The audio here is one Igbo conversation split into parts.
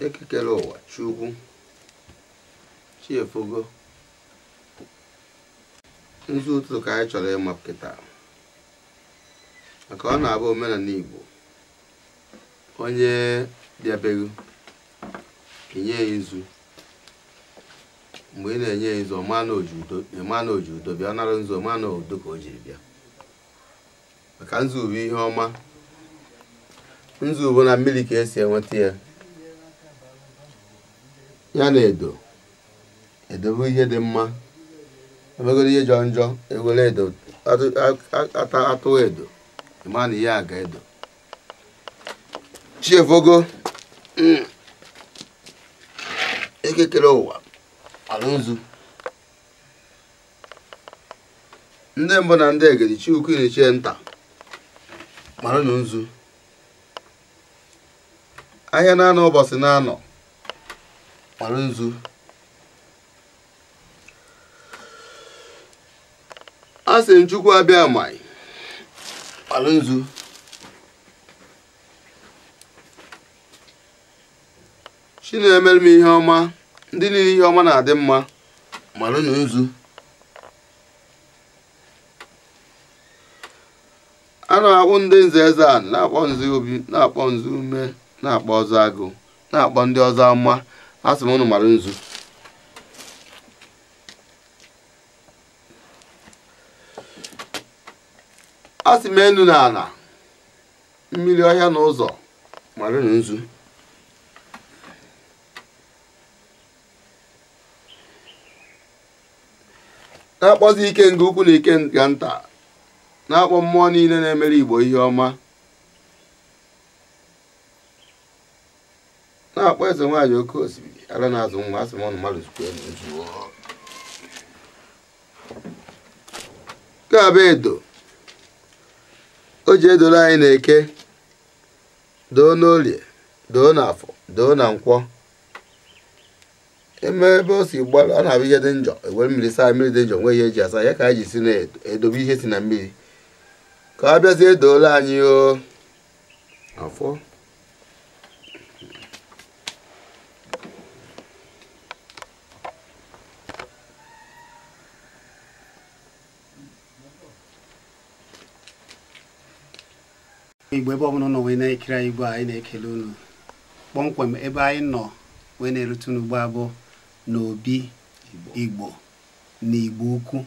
ekekere ụwa chukwu chiefogo nzu ụtụtụ ka anyị chọrọ ịmapụta maka ọ na-abụ omenala igbo onye bịabeghị kenye ya nzu mgbe ị na-enye ya nzo mana oji udo bịa nara nzo mana udo ka o jiri bịa maka nzube ihe ọma nzube na mmiri ka esi enweta ya ya na edo edobe ihe dị mma emegoro ihe jọ njọ ewere edo atụ edo ịma na ihe a ga edo chiefogo mm, ekekere ụwa alụzu ndị mbụ na ndị egedi chukwu ichie nta mara na nzu ahịa na-anọ ụbọchị na-anọ mara nzu a sị nchukwu abịa mai mara nzu chi na-emere m ihe ọma ndị niile ihe ọma na-adị mma mara na nzu a na ndị nze eze a na-akpọ nzu obi na-akpọ nzu ume na-akpọ ọzọ agụ na-akpọ ndị ọzọ mma a sị m ụnụ mara nzu asị sị m enu na ala mmiri ọhịa na ụzọ na nzu na-akpọzi ike nke ukwu na ike nga nta na-akpọ mmụọ niile na-emere igbo ihe ọma na-akpọ eze nwaanyị oke osimiri ara na-azụ nwa asị m mmadụ nke a edo o ji edoro anyị na eke doo n'olie doo n'afọ doo na nkwọ eme ebe o si gbarụ ọ na-abụ ihe dị njọ ewe mmiri saa mmiri dị njọ nwee ihe eji asa ya ka anyị ji si na-edobe ihe si na mmiri ka ọ bịazie edoola anyị o afọ igbo ebe ọbụla ụnọ wee na-ekiri anyị igbo anyị na-ekele unu kpọmkwem ebe anyị nọ wee na-erute n'ugbo abụọ n'obi igbo na igbo ukwu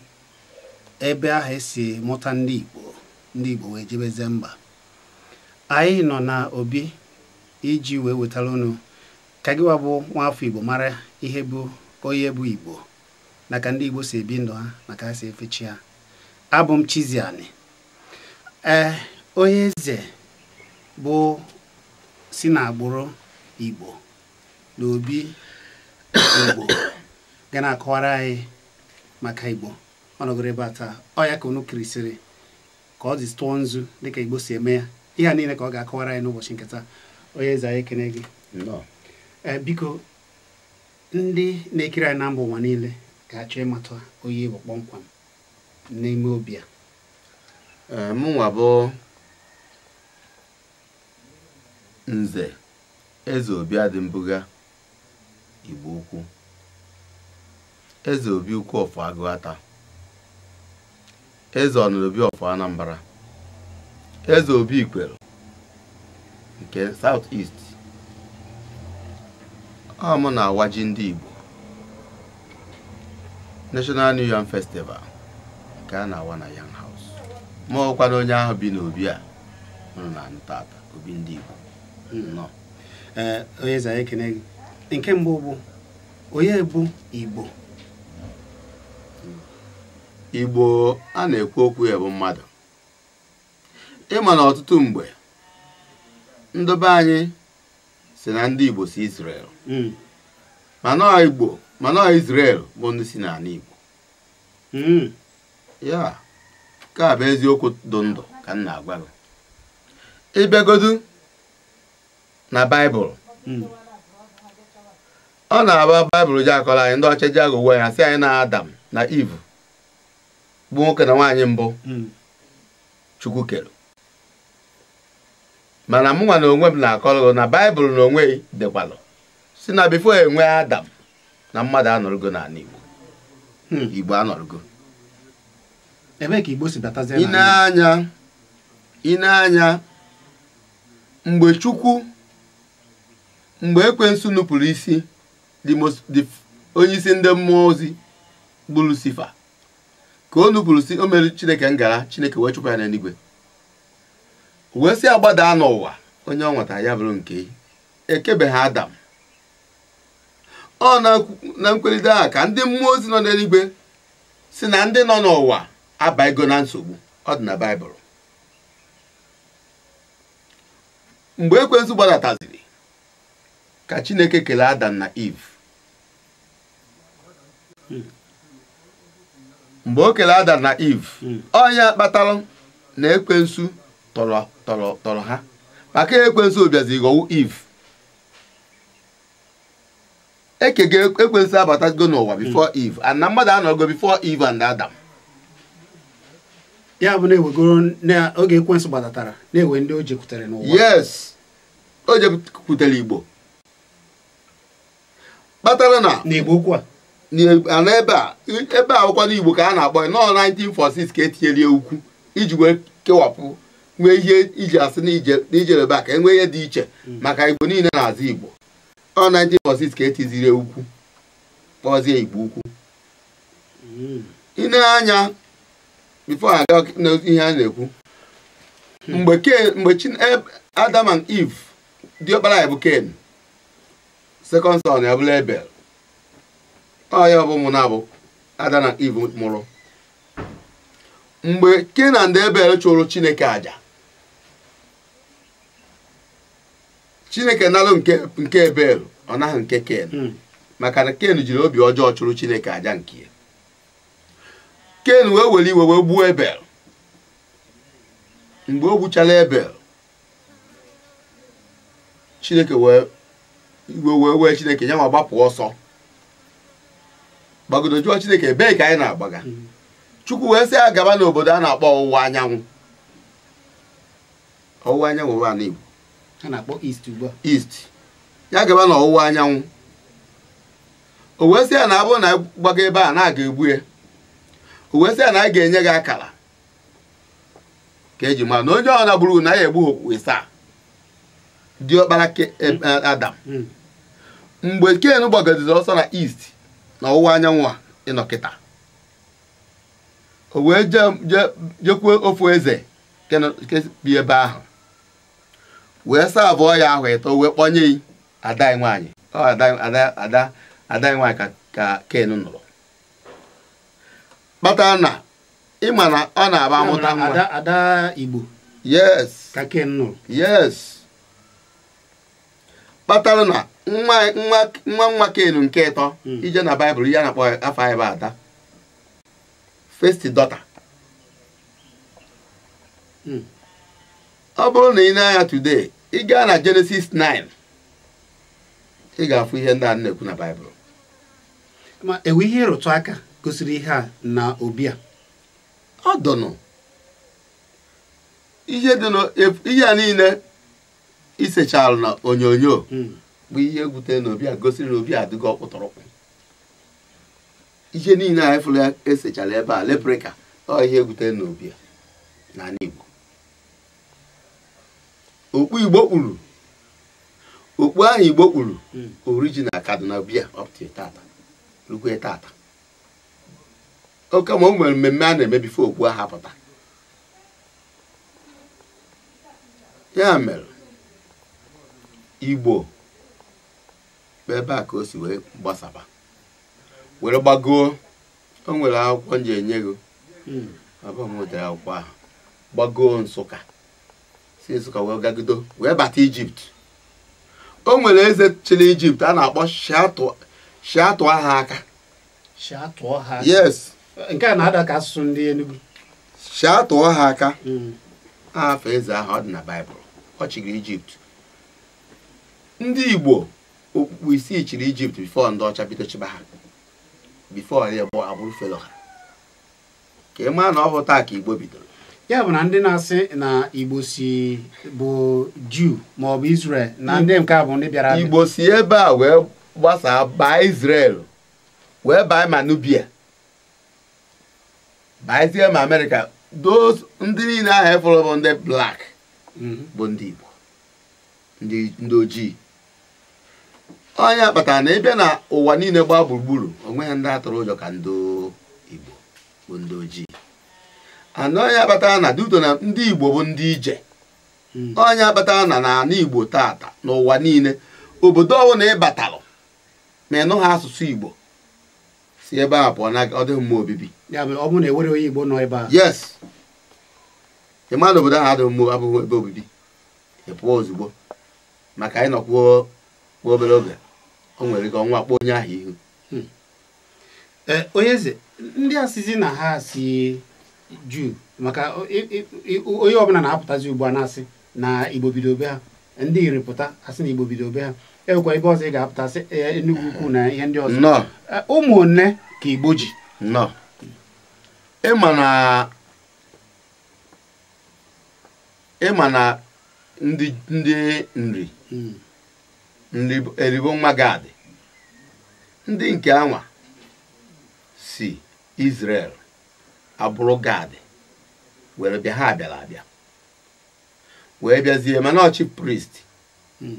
ebe ahụ esi mụta ndị igbo ndị igbo wee jebeze mba anyị nọ na obi iji wee wetara unu ka gịwa bụ nwaafọ igbo mara ihe bụ onye bụ igbo naka ndị igbo si ebi ndụ ha maka ha si efechi ha abụ m Chizzy ee onye eze bụ si n'agbụrụ igbo n'obi. igbo ga na-akọwara anyị maka igbo ọnọgoro ebe a taa ọ ya ka unu kirisịrị ka ọ dị tụọ nzu dịka igbo si eme ya ihe a niile ka ọ ga-akọwara anyị n'ụbọchị nke onye eze anyị ekene gị eh, biko ndị na-ekiri anyị na mba ụwa niile ga-achọ ịmata onye igbo kpọmkwam n'ime obi a eh, mụnwa nze eze obi adịmbụga Igbo ukwu eze obi ukwu ọfọ agụata eze ọnụobi ọfọ Anambra eze obi ikwere nke South East ọ na-awaji ndị Igbo National New Yam Festival nke a na-awa na Yam House ma ọkwa na onye ahụ bi n'obi a nụrụ na tata obi ndị Igbo nọ onye za ekene gị nke mbụ bụ onye bụ igbo igbo a na-ekwu okwu ya bụ mmadụ ịma na ọtụtụ mgbe ndobe anyị si na ndị igbo si israel hmm. mana igbo mana israel bụ ndị si n'ala igbo hmm. ya ka bụ eziokwu ndụ ndụ ka m na-agwa gị ịbịagodu na baịbụl hmm. ọ na agba baịbụl ji akọrọ anyị ndị ọcha ji agụ uwe ya si anyị na adam na iv bụ nwoke na nwaanyị mbụ hmm. chukwu kere mana mụnwa na onwe m na-akọrọ na baịbụl na onwe dịkwalụ si na bifo enwe adam na mmadụ anọrọgo n'ala igbo hmm. igbo anọrọgo ineanya ineanya mgbe chukwu mgbe ekwensu nupụrụ isi onye isi ndị mmụọ ozi bụ lusifa ka o nupụrụ si o mere chineke ngara chineke wee chụpụ ya n'eluigwe wee sị agbadaa n'ụwa onye ọ nwetara ya bụrụ nke ekebeghị adam ọ na nkwelite a ka ndị mmụọ ozi nọ n'eluigwe si na ndị nọ n'ụwa abaigo na nsogbu ọ dị na baịbụl mgbe ekwensu gbadataziri ka chineke kelee adam na eve mgbe o kere adam na eve ọnya kpatara na ekwensu tọrọ ha maka ekwensu obiazi ghọwu eve e ga ekwensu abatago n'ụwa bifo eve and na mmadụ anọgo bifo eve and adam ya bụ na ewegoro na oge ekwensu gbatatara na-ewe ndị o jekwutere n'ụwa yes o jekwutere igbo kpatara na na ebe a ebe a n'igbo ka a na-akpọ nọọ 1946 ka etinyere ukwu iji wee kewapụ nwee ihe iji asị n'ijere ebe a ka enwee ihe dị iche mm. maka igbo niile na-azụ igbo ọ 1946 ka etiziri ukwu kpọzie igbo ukwu mm. ine anya bifo aga ihe a na-ekwu hmm. mgbe Adam and Eve diọkpara ya bụ Ken sekọnd son ya bụla ebel ọya ọbụ ụmụna abụ ada na iv mụrụ mgbe kenan da ebel chụrụ chineke aja chineke nalụ nke ebel ọ naghị nke ken hmm. maka na ken jiri obi ọjọọ chụrụ chineke aja nke ya ken wee were iwe wee gbuo ebel mgbe o gbuchala ebel chineke wee iwe wee wee chineke ya ma gbapụ ọsọ gbagodo jụọ chineke ebee ka anyị na-agbaga mm-hmm. chukwu wee sị ya gaba n'obodo a na-akpọ ọwụwa anyanwụ ọwụwa anyanwụ ụwa na igbo na-akpọ ugbu a ya gaba n'ọwụwa ọwụwa anyanwụ o wee sị ya na abụ na gbaga ebe a na-aga egbu ya o wee sị ya na a ga-enye gị akara ka eji mara na onye ọ na gburu na ya egbu okpu ịsaa diọkpara e, mm. adam mm. mgbe ken gbagoziri ọsọ na east na ọwụwa anyanwụ a ịnọkịta o wee jekwuo ofu eze bi ebe ahụ wee saa abụọ ya ahụ ịtọ wee kpọnye yi ada anyị nwaanyị ka ken nụrụ kpatara na ịma na ọ na-aba amụta ada igbo yes ka ken nụrụ yes kpatara na nwa nwa kelu nke ịtọ hmm. ije na baịbụl ihe a na-akpọ afọ anyị ada first dọta. Hmm. ọ bụrụ na ị na-anya today ị gaa na jenesis 9 ị ga-afụ ihe ndị a na-ekwu na baịbụl ma enwe ihe ịrụtụ aka gosiri ihe a na obi a ọ dọnụ ihe a niile isechalụ na onyonyo hmm. bụ ihe gwute na obi a gosiri na obi adịgo ọkpụtọrọkpụ ihe niile anyị fụrụ esechara ebe a leprika ọ ihe gwute na obi a n'ala Igbo okpu Igbo kpuru okpu ahụ Igbo kpuru hmm. orijinal Kaduna bia tata rukwe tata oke ma o nwere mmemme a na-emebife okpu ahụ apụta ya mere Igbo ebe a ka o si wee gbasaba were gbagoo o nwere akwụkwọ m ji enye gị abụọ hmm. m nwetara akwụkwọ ahụ gbagoo nsụka si nsụka wee gagido wee bata ijipt o nwere eze chịrị ijipt a na-akpọ shiatụ ha aka yes nke a na-ada asụsụ ndị Enugu shiatụọ ha aka hmm. aha afọ eze ahụ ọ dị na baịbụl ọ chịrị ijipt ndị igbo okpukpu isii chiri ijipt bifọ ndị ọcha bido chịba ha bifọ ya bụ agbụrụ felo ha ka ị maa na ọ taa ka igbo bidoro ya bụ na ndị na-asị na igbo si bụ juu maọbụ israel na hmm. ndị nke a bụ ndị bịara igbo si ebe a wee gbasaa baa israel wee baa manubia nubia israel ma amerịka those ndị niile ahụ efọrọ bụ ndị blak hmm. bụ ndị igbo ndị ojii onye kpatara na ịbịa na ụwa niile gbaa gburugburu onwe ya ndị atụrụ ụjọ ka ndị igbo bụ ndị ojii onye kpatara na duto na ndị igbo bụ ndị ije hmm. onye kpatara na n'ala igbo tata n'ụwa niile obodo ọwụ na ịbatalụ ma ịnụ ha asụsụ igbo si ebe a pụọ na ọ dịghị mma obibi e yes ịma na obodo ahụ adịghị mma abụghị ebe obibi ị ozugbo maka ịnọkwuo obere oge o nwere ka ọnwa onye ahụ ihu hmm. e, onye eze ndị asịzi na ha si juu maka onye ọbụla na-apụtazi ugbu a na-asị na igbo bido be ha ndị iri pụta asị na igbo bido be ha enwekwa ebe ọzọ ị ga-apụtasị e, Enugu ukwu na ihe ndị ọzọ e, ụmụnne ka igbo ji ịma na ndị nri hmm. eribo nwagadị ndị nke anwa si Israel abụrụ gad were bịa ha bịara abịa wee bịazie mana ọchị priest hmm.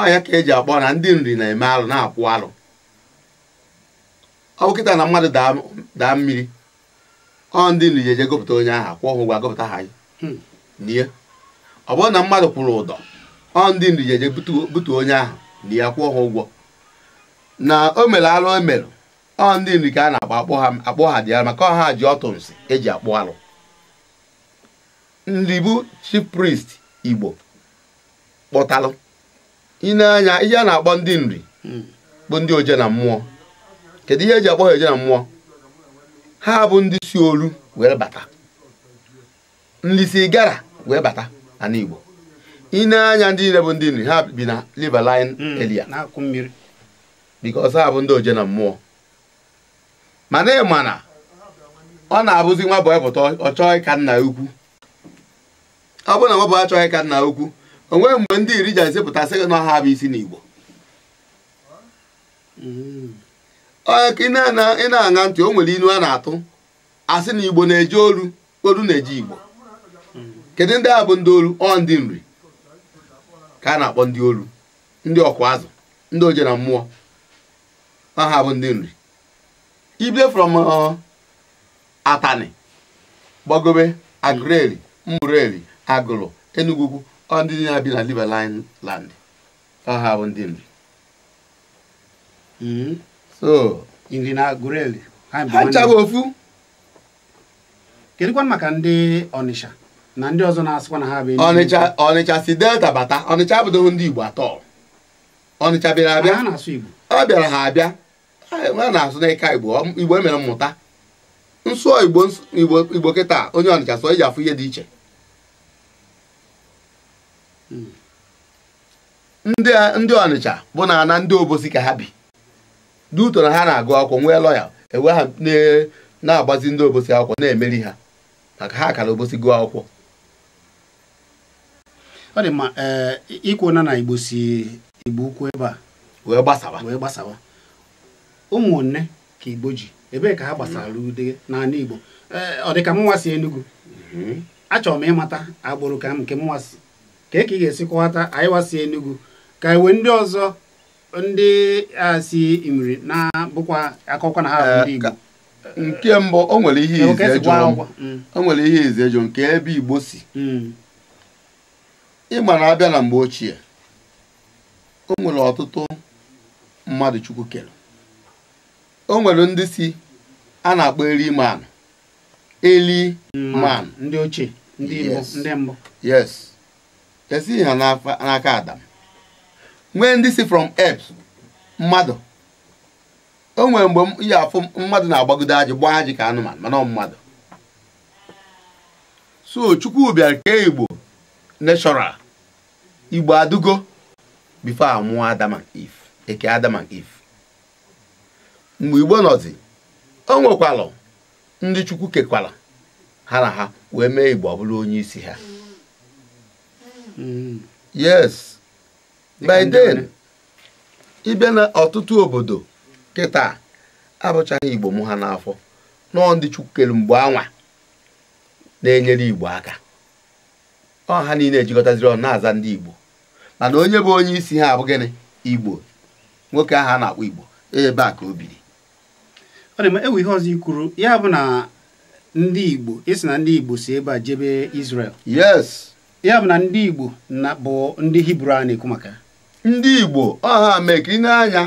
ọya ka eji akpọ na ndị nri na-eme alụ na-akwụ alụ ọ kịta na mmadụ daa mmiri ọ ndị nri ji eje gụpụta onye ahụ akwụ ọhụgwọ gụpụta ha hmm. nye ọ bụrụ na mmadụ kwụrụ ụdọ ọ ndị ndu jeje butu onye ahụ na ya kwụọ ha ụgwọ na o mere alụ o mere ọ ndị ndu ka a na-akpọ akpọ ha akpọ ha dị ya maka ọha ji ọtụ nsị eji akpụ alụ ndị bụ chief priest igbo kpọtalụ ịna ihe a na-akpọ ndị nri bụ ndị oje na mmụọ kedu ihe eji akpọ ha oje na mmụọ ha bụ ndị si olu wee bata ndị si gara wee bata na igbo ị na-anya ndị niile bụ ndị nri ha bi na liverline hmm, elia because ha bụ ndị oje na mmụọ mana ị ma na ọ na-abụzi nwa boy pụta ọ ka nna ukwu ọ bụrụ na nwa boy achọghị ka nna ukwu onwe mgbe ndị iri ji ezipụta sị na ha bụ isi n'Igbo hmm. ị na-aṅa ntị o nwere ilu a na-atụ asị na Igbo na-eji olu olu na-eji Igbo hmm. kedu ndị a bụ ndị olu ọ ndị nri ka a na-akpọ ndị olu ndị ọkwa azụ ndị oje na mmụọ aha bụ ndị nri ible from uh, atani gbagobe agụreli mgbụreli agụrụ enugwu ndị na bi na liberline land aha bụ ndị nri hmm. so ha nchaghị ofu kedụkwa maka ndị Ọnịsha na ndị ọzọ na-asịkwa na ha bụ Ọnịcha Ọnịcha si delta bata Ọnịcha abụdoghị ndị Igbo atọ Ọnịcha bịara abịa ọ bịara ha abịa a na-asụ n'ịka Igbo Igbo emere mmụta nsụọ Igbo Igbo kịta onye Ọnịcha sụọ iji afụ ihe dị iche hmm. ndị Ọnịcha bụ na na ndị obosi ka ha bi duto na ha na-agụ akwụkwọ nwee lọya ewe ha na-agbazi ndị obosi akwụkwọ na-emeri ha maka ha akara obosi gụọ akwụkwọ ọ dị mma ee eh, ikwu na na igbo si igbo ukwu ebe a wee gbasawa wee gbasawa ụmụnne ka igbo ji ebee ka ha gbasara ude n'ala igbo eh, ọ dị ka mụnwa si enugwu mhm. achọrọ m ịmata agbụrụ ka m nke mụnwa si ka ka ị ga-esi kọwata anyị wasi enugu ka iwe e ndị ọzọ ndị a si imiri na bụkwa akụkọ na ha ndị eh, igbo nke mbụ o nwere ihe ize mm. jụ nke ebe igbo si mm. ịma na abịa na mgbe ochie o nwere ọtụtụ mmadụ chukwu kere o nwere ndị si a na-akpọ eri man eli mm. man ndị ochie ndị mbụ yes esighị e ha n'aka adam nwee ndị si from earth mmadụ o nwere mgbe ya afụ mmadụ na-agbagodo ajị gbaa ajị ka anụmanụ mana ọ mmadụ so chukwu bịara kee igbo neshọral igbo adugo bifo amụọ Adam and Eve eke Adam and Eve mgbe igbo nọzi o nwekwalụ ndị chukwu kekwala ha na ha wee mee igbo bụrụ onye isi ha hmm. yes by then ịbịa na ọtụtụ obodo kịta abụchaghị igbo mụ ha n'afọ nọọ ndị chukwu kere mgbe anwa na-enyere igbo aka ọha niile ejikọtaziri ọnụ na-aza ndị igbo mana onye bụ onye isi ha abụghị igbo nwoke ahụ a na-akpọ igbo ebe a ka o biri ọ dị ma ewu ihe ọzọ ikwuru ya bụ na ndị igbo isi na ndị igbo si ebe a jebe Israel yes ya bụ na ndị igbo na bụ ndị hibru a na-ekwu maka ndị igbo ọha mekiri n'anya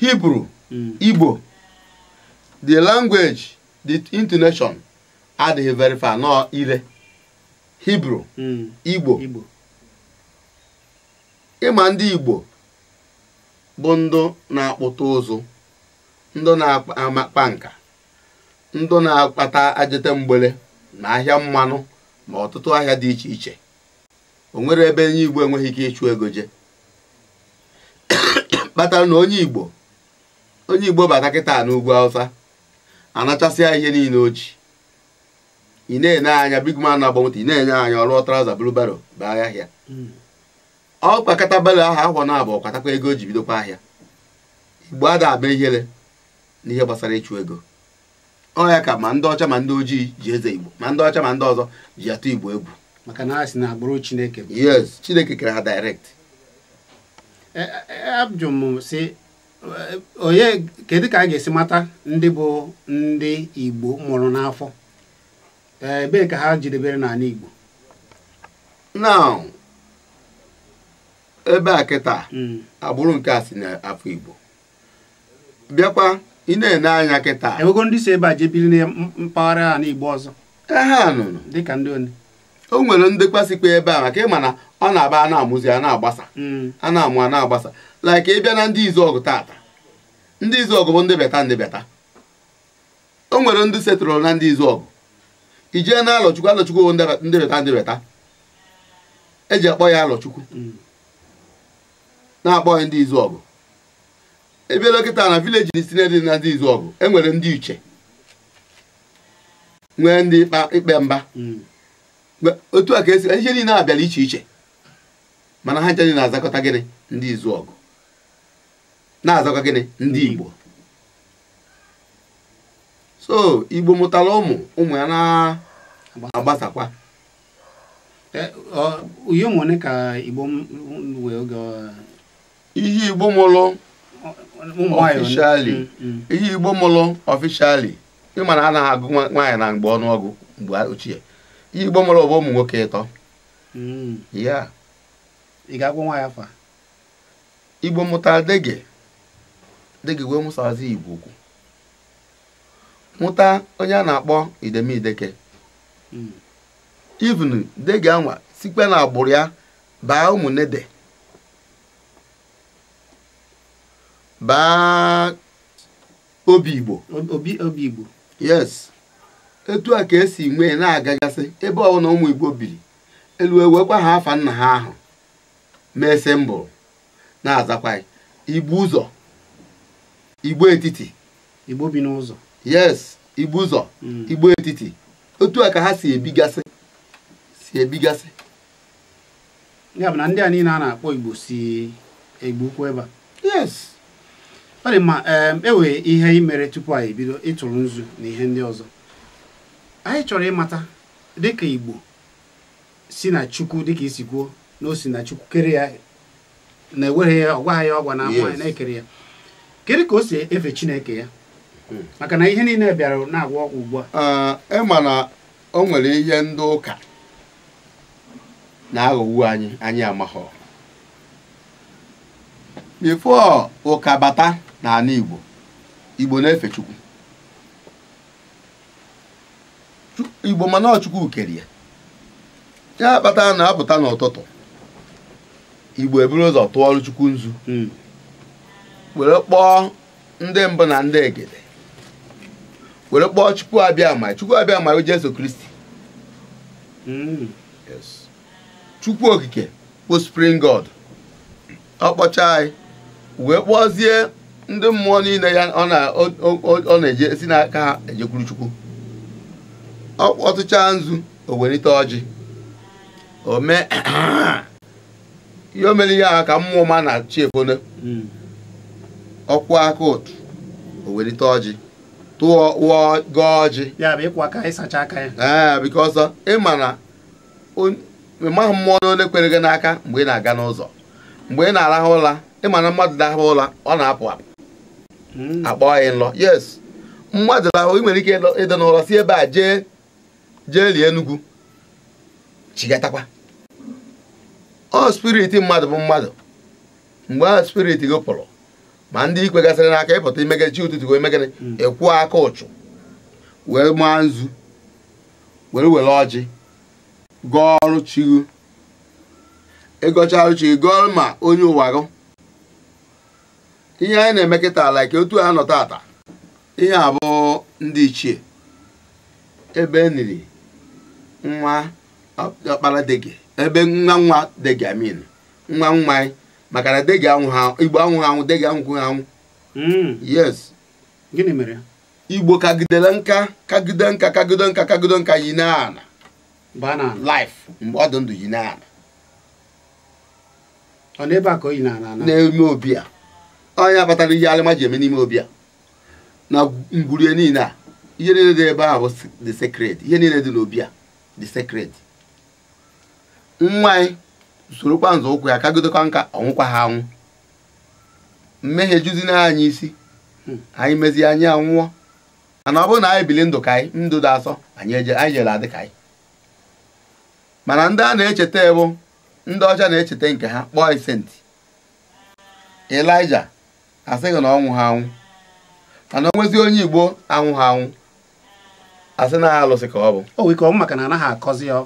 hibru hmm. igbo the language the intonation adịghị very far nọ ire. hibru hmm. igbo ịma ndị igbo bụ ndụ na-akpụta ụzụ ndụ na akpa nka ndụ na-akpata ajete mgbele na ahịa mmanụ ma ọtụtụ ahịa dị iche iche o nwere ebe onye igbo enweghị ike ịchụ ego je kpatara na onye igbo onye igbo bata kịta n'ugwu awụsa anachasịa ihe niile o ị na-enye anya big man na-agba moto ị na-enye anya ọrụ traza baro bụ ahịa ahịa hmm. ọ kpakọta belo ahụ akwọ na abụọ kwatakwa ego o ji bidokwa ahịa igbo ada aba ihere n'ihe gbasara ịchụ ego ọ ya ka ma ndị ọcha ma ndị ojii ji eze igbo ma ndị ọcha ma ndị ọzọ ji atụ igbo egwu maka na ha si na agbụrụ chineke yes chineke kere ha direct e, e, e, abjụ si onye kedu ka a ga-esi mata ndị bụ ndị igbo mụrụ n'afọ Eh, ebe ka ha jidebere n'ala Igbo now ebe a kịta hmm. agbụrụ nke a si n'afọ Igbo bịakwa ị na-ene anya kịta ewego ndị si ebe a jebiri na mpaghara ala Igbo ọzọ e ha nụrụ dịka ndị one o nwere ndekwasikwa ebe a maka ịma na ọ na-aba a na-amụzi a na-agbasa hmm. a na-amụ a na-agbasa ị bịa na ndị izu ọgụ tata ndị izu ọgụ bụ ndị beta ndị beta o nwere ndị setụrụ na ndị izu ọgụ ijee na alọchukwu alọchukwu ndịrịta ndịrịta eji akpọ ya alọchukwu na-akpọ ya ndị izu ọgụ ebe dọkịta na vileji n dị na ndị izu ọgụ enwere ndị iche nwee ndị ikpe mba otu a ka esi ihe niile abịara iche iche mana ha nche na-azakọta gịnị ndị izu ọgụ na-azakọ gịnị ndị igbo so igbo mụtara ụmụ ụmụ ya na-agbasakwa uyo e, ụmụnne ka igbo wee oge ihe igbo mụlụ ọfishali mm, mm. ihe igbo mụlụ ọfishali na anaghị agụ nwaanyị na mgbe ọnụọgụ mgbe ochie ihe igbo mụlụ bụ ụmụ nwoke ịtọ mm. ya igbomuta igbo dege dege wee mụsazi igbo ukwu mụta onye a na-akpọ idemideke hmm. even dege anwa sikpe na agbụrụ ya baa ụmụnede baa obi igbo obi igbo yes etu a ka esi nwee na-agagasị ebe ọbụla ụmụ igbo biri elu ewekwa ha afa nna ha ahụ mese mbụ na-azakwa igbo ụzọ igbo etiti igbo bi yes igbu ụzọ mm. igbo etiti otu a ka ha si ebigasị si ebigasị ya bụ na ndị a niile a na-akpọ igbo si igbu ụkwụ ebe a yes ọ dị mma enwe e ihe imere mere tupu anyị bido ịtụrụ nzu na ihe ndị ọzọ anyị chọrọ ịmata dịka igbo si na chukwu dịka isi kwuo na o si na chukwu kere ya na-eweghị ya ọgwaghị ọgwa na na-ekere ya kedu ka o si efe chineke ya maka na ihe niile bịara na-agwọ ọgwụ ugbu a ma na o nwere ihe ndị ụka na-aghọwu anyị anyị amaghọ bifo ụka bata n'ala Igbo Igbo na-efe Chukwu Igbo mana ọchukwu kere ya ya kpata na-apụta n'ụtụtụ Igbo eburu ụzọ tụọ ọrụ Chukwu nzu hmm. were kpọọ ndị mbụ na ndị egede were kpọọ chukwu abịa ama chukwu abịa o Jesu Kristi mm. chukwu okike bụ spring god ọ kpọchaa anyị wee kpọzie ndị mmụọ niile ya ọ na-eje si n'aka ha ejekwuru chukwu ọ kpọtụchaa nzu o welite ọjị o mee ihe o mere ihe ahụ ka mmụọ ma na chi efone mm. ọkwụ aka ụtụ o welite ọjị tụọ gọọ ọjị ee because ịma eh, na mmụọ na onye kwere gị n'aka mgbe ị na-aga n'ụzọ mgbe ị na-arahụ ụra ịma na mmadụ dahụ ụra ọ na-apụ apụ hmm. akpọọ ya nlọ yes mmadụ rahụ ị nwere ike ịdị n'ụlọ si ebe a jee jee lie enugwu chigatakwa ọ spirit mmadụ bụ mmadụ mgbe ahụ spiriti gị pụrụ ma ndị ikwe gasịrị n'aka ịpụta imegide chi ụtụtụ wee megide mm. ịkwụ aka ụchụ wee maa nzu were were ọjị gụọ ọrụ chigo ịgọcha ọrụ chigo gụọ ma onye ụwa gụ ihe anyị na-eme kịta ala ka otu a nọta tata ihe abụọ ndị ichie ebe e niri nwa ọkpara gị ebe nwa nwa dege amin nwa nwa anyị maka na degi igbo ha anwụ degi ha anwụ hmm. yes gịnị mere igbo kagidere nka kagide nka kagide nka kagide nka yi na ana life mgbe ọ dị ndụ yi na ana ọ n'ebe a ka o yi n'ime obi a onye akpatara ihe alịma ji eme n'ime obi a na ngwurie niile a ihe niile dị ebe ahụ the secret ihe niile dị n'obi a the secret nwa anyị sorokwa nzọ ụkwụ ya kagidokwa nka ọnwụkwa ha anwụ mmehie juzina hmm. anyị isi anyị mezie anyị anwụọ mana ọ bụrụ na anyị bili ndụ ka anyị ndụ dị asọ anyị jere adị ka anyị mana ndị a na-echeta ebu ndị ọcha na-echeta nke ha kpọọ isenti elija asịghị na ọnwụ ha anwụ mana onye igbo anwụ ha anwụ asị na alụsị ka ọ bụ o wee maka na anaghị akọzi ya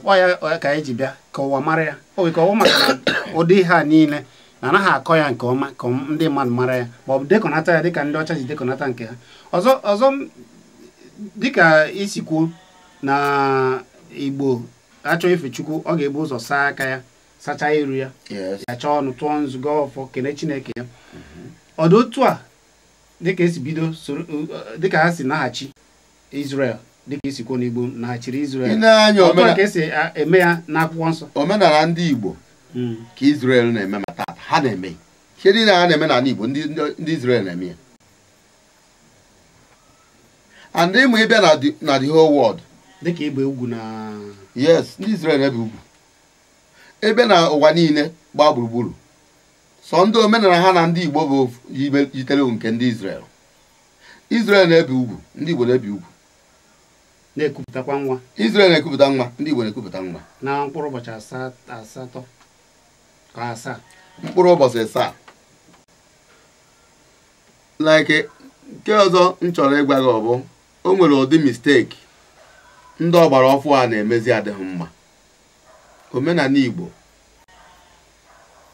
ya ka anyị e ji bịa ka ụwa mara ya o wee ka ọ maka ụdị ha niile na anaghị akọ ya nke ọma ka ndị mmadụ mara ya ma ọ bụ dekọnata ya dịka ndị ọcha ji dekọnata nke ha ọzọ ọzọ dịka isi kwuo na igbo achọ ife chukwu ọ ga-ebu ụzọ saa aka ya sachaa iru ya ya ọnụ tụọ nzụgo ọfọ kene chineke ya ọdụ otu a dịka esi bido dịka ha si naghachi izrel. dịka isikwo n'igbo na-achịrị Israel ọtụ ka esi eme ya n'akwụkwọ nsọ omenala ndị igbo hmm. ka Israel na-eme ma taata ha na-eme ihe niile ha na-eme n'ala igbo ndị Israel na-eme ya and ịmụ ịbịa na the whole world dịka ịgba ugwu na yes ndị Israel ebe ugwu ebe na ụwa niile gbaa gburugburu sọ ndị omenala ha na ndị igbo bụ yitere nke ndị Israel Israel na-ebi ugwu ndị igbo na-ebi ugwu na-ekupụtakwa nwa Israel na-ekupụta nwa ndị Igbo na-ekupụta nwa na mkpụrụ ụbọchị asatọ ka asaa mkpụrụ ụbọchị asaa like nke ọzọ m chọrọ ịgwa gị ọ bụ o nwere ụdị misteki ndị ọgbara ọfụ a na-emezi adịghị mma omenala Igbo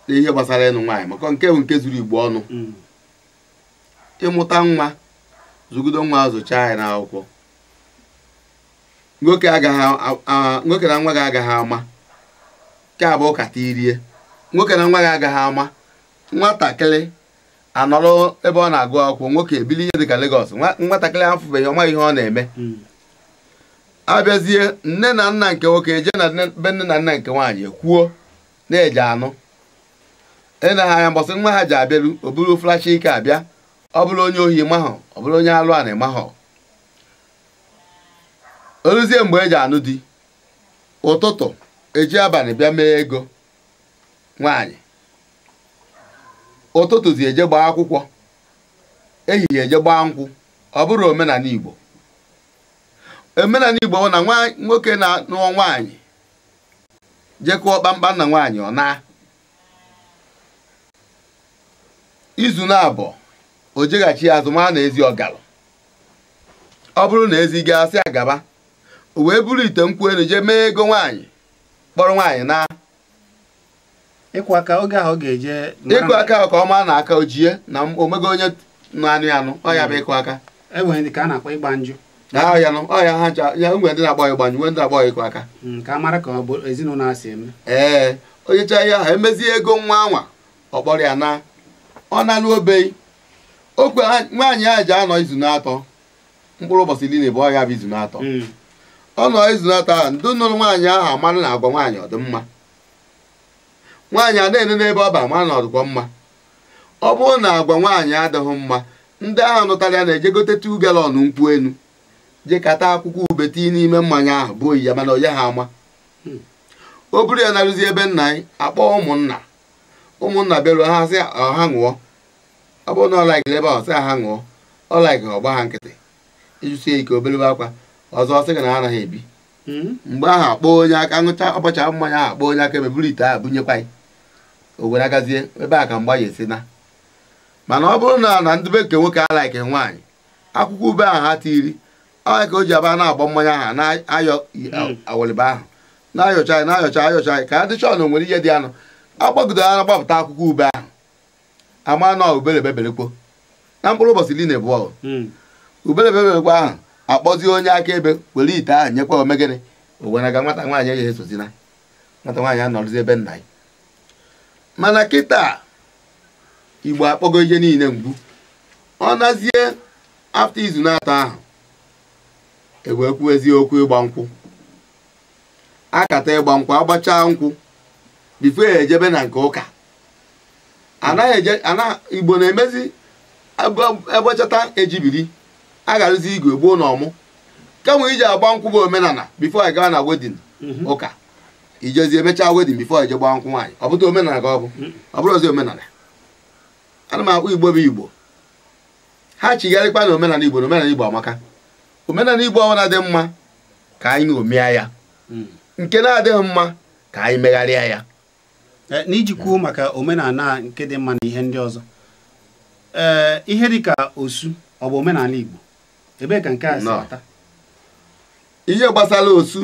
n'ihe gbasara ịnụ nwaanyị maka nke bụ nke zuru Igbo ọnụ mm. ịmụta nwa zụgido nwa zụchaa anyị n'akwụkwọ nwoke na nwa gị agaghị ama nke abụọ kata irie nwoke na nwa gị agaghị ama nwatakịrị anọrọ ebe ọ na-agụ akwụkwọ nwoke ebili ihe dịka legos nwatakịrị afụbeghị ọma ihe ọ na-eme hmm. abịazie nne na nna nke nwoke eje na be nne na nna nke nwaanyị kwuo na-eje anụ ị e ha anya mbọsị nwa ha ji abịaru o bụrụ flash ike abịa ọ bụrụ onye ohi mahọ ọ bụrụ onye alụ na mahọ oluzie mgbe eji anụ di ụtụtụ eji abalị bịa mee ego nwaanyị ụtụtụ zi eje gbaa akwụkwọ ehihie eje gbaa nkwụ ọ bụrụ omenala Igbo omenala Igbo bụ na nwoke na-anụọ nwaanyị jekụọ kpamkpam na nwaanyị ọ na izu na abụọ o jeghachi azụ maa na ezi ọgara ọ bụrụ na ezi ga-asị agaba o wee buru ite nkwụ elu jee mee ego nwaanyị kpọrọ nwaanyị na ịkwụ aka oge ahụ ga-eje ịkụ aka ahụ ka na aka ojie na omego onye na-anụ ya anụ bụ hmm. ịkụ aka enwere a na-akpọ ya nụ ọ ha ya nwere ndị na ịgba ndị na ịkụ aka hmm, ee onye ihe ahụ emezie ego nwa anwa ọkpọrọ ya na ọ na-alụ nwaanyị ahụ ji anọ izu na mkpụrụ ụbọchị bụ bụ izu na ọ nọ izunata ahụ ndị nụrụ nwaanyị ahụ amanụ na agwa nwaanyị ọdịmma nwaanyị adịghị n'ebe ọ ba ama na ọdịkwa mma ọ bụrụ na agwa nwaanyị adịghị mma ndị ahụ nụtara ya na-eje gote tu galọn nkwụ enu je kata akwụkwọ ube n'ime mmanya ahụ bụ oyi ya mana onye ha ama o buru ya narụzi ebe nna anyị akpọ ụmụnna ụmụnna bịaruo ha sị ọha ṅụọ ọ bụrụ na ọ ebe ahụ sị ha ṅụọ ọ ọgba ha nkịtị ịjụsie ike obelebe akwa ọzọ ọsị gị na anaghị ebi hmm? mgbe ahụ akpọọ onye aka ṅụcha ọkpọcha mmanya ahụ akpọọ onye aka emeburu ite ahụ bunyekwa ya o ebe a ka mgba ya esi na mana ọ bụrụ na na ndị be nke nwoke alaike nwaanyị akwụkwọ ube ahụ ha tiri onye ka o ji aba na-agba mmanya ahụ na-ayọ hmm. awoliba ahụ na-ayọcha anyị na-ayọcha ayọcha anyị ka ndị chọọ nwere ihe dị anụ agbagide ara gbapụta akwụkwọ ube ahụ ama na ubere beberekwo na mkpụrụ ụbọchị na hmm. ahụ akpọzi onye akaebe were ite ahụ nyekwa omegịnị ga nwata nwaanyị ya esozina nwata nwaanyị anọrụzi ebe nna ya mana kịta igbo akpọgo ihe niile mgbu ọ nazie afta izu na-atọ ahụ ewee kwuo eziokwu ịgba nkwụ akata ịgba nkwụ agbachaa nkwụ bifo ejebe na nke ụka anaghị eje igbo na-emezi agbachata ejibiri a ga-arụzi igwe gboo na ọmụ kemgbe iji agba nkwụ bụ omenala bifo anyị gaa na wedin mhm. ụka ijezi emechaa wedin bifo anyị je gbaa nkwụ nwaanyị ọ bụta omenala ka ọ bụ mhm. ọ bụrụ ozi omenala ana m akpọ igbo bụ igbo ha chigharịkwa na omenala igbo na omenala igbo amaka omenala igbo ọbụla dị mma ka anyị omea ya mhm. nke na-adịghị mma ka anyị megharịa ya eh, n'ijikwuo maka omenala nke dị mma na ihe ndị ọzọ ee eh, ihe dịka osu ọ bụ omenala igbo ebe ka nke a si ata ihe gbasara osu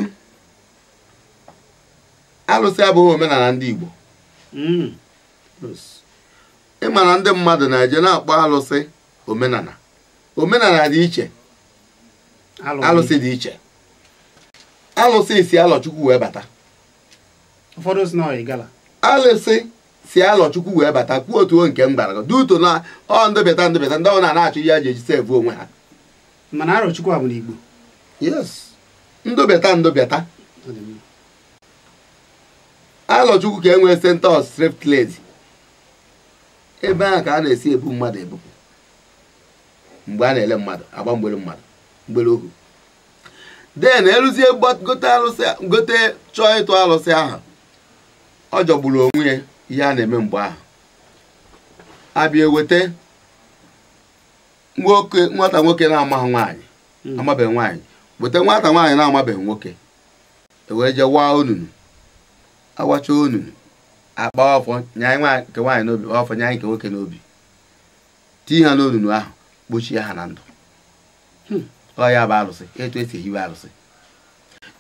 alụsị abụghị omenala ndị Igbo mm. ịma na ndị mmadụ na-eje na-akpọ alụsị omenala omenala dị iche alụsị dị iche alụsị si alọchukwu wee bata alụsị si alọchukwu wee bata kwuo otu nke mbara duto na ọ ndịbịata ndịbịata ndị ọ na achọ ihe a ji eji sevu onwe ha mana Arochukwu bụ n'Igbo yes ndobịata ndobịata Arochukwu ka enwee sentọs striptease ebe ahụ ka a na-esi ebu mmadụ ebupụ mgbe a na-ele mmadụ agba mgbere mmadụ mgbere ohu den eruzie gote chọọ ịtụ alụsị ahụ ọ jọgburu onwe ya ihe a na-eme mgbe ahụ abịa nwoke nwata nwoke na-amaghị nwaanyị hmm. amabeghị nwaanyị weta nwata nwaanyị na-amabeghị nwoke ewee jee waa onunu awacha onunu akpa ọfọ nyaanyị nke nwaanyị n'obi ọfọ nyaanyị nke nwoke n'obi tinye ha n'onunu ahụ kpochie ha na ndụ hmm. ọ ya bụ arụsị etu esi ehiwe alụsị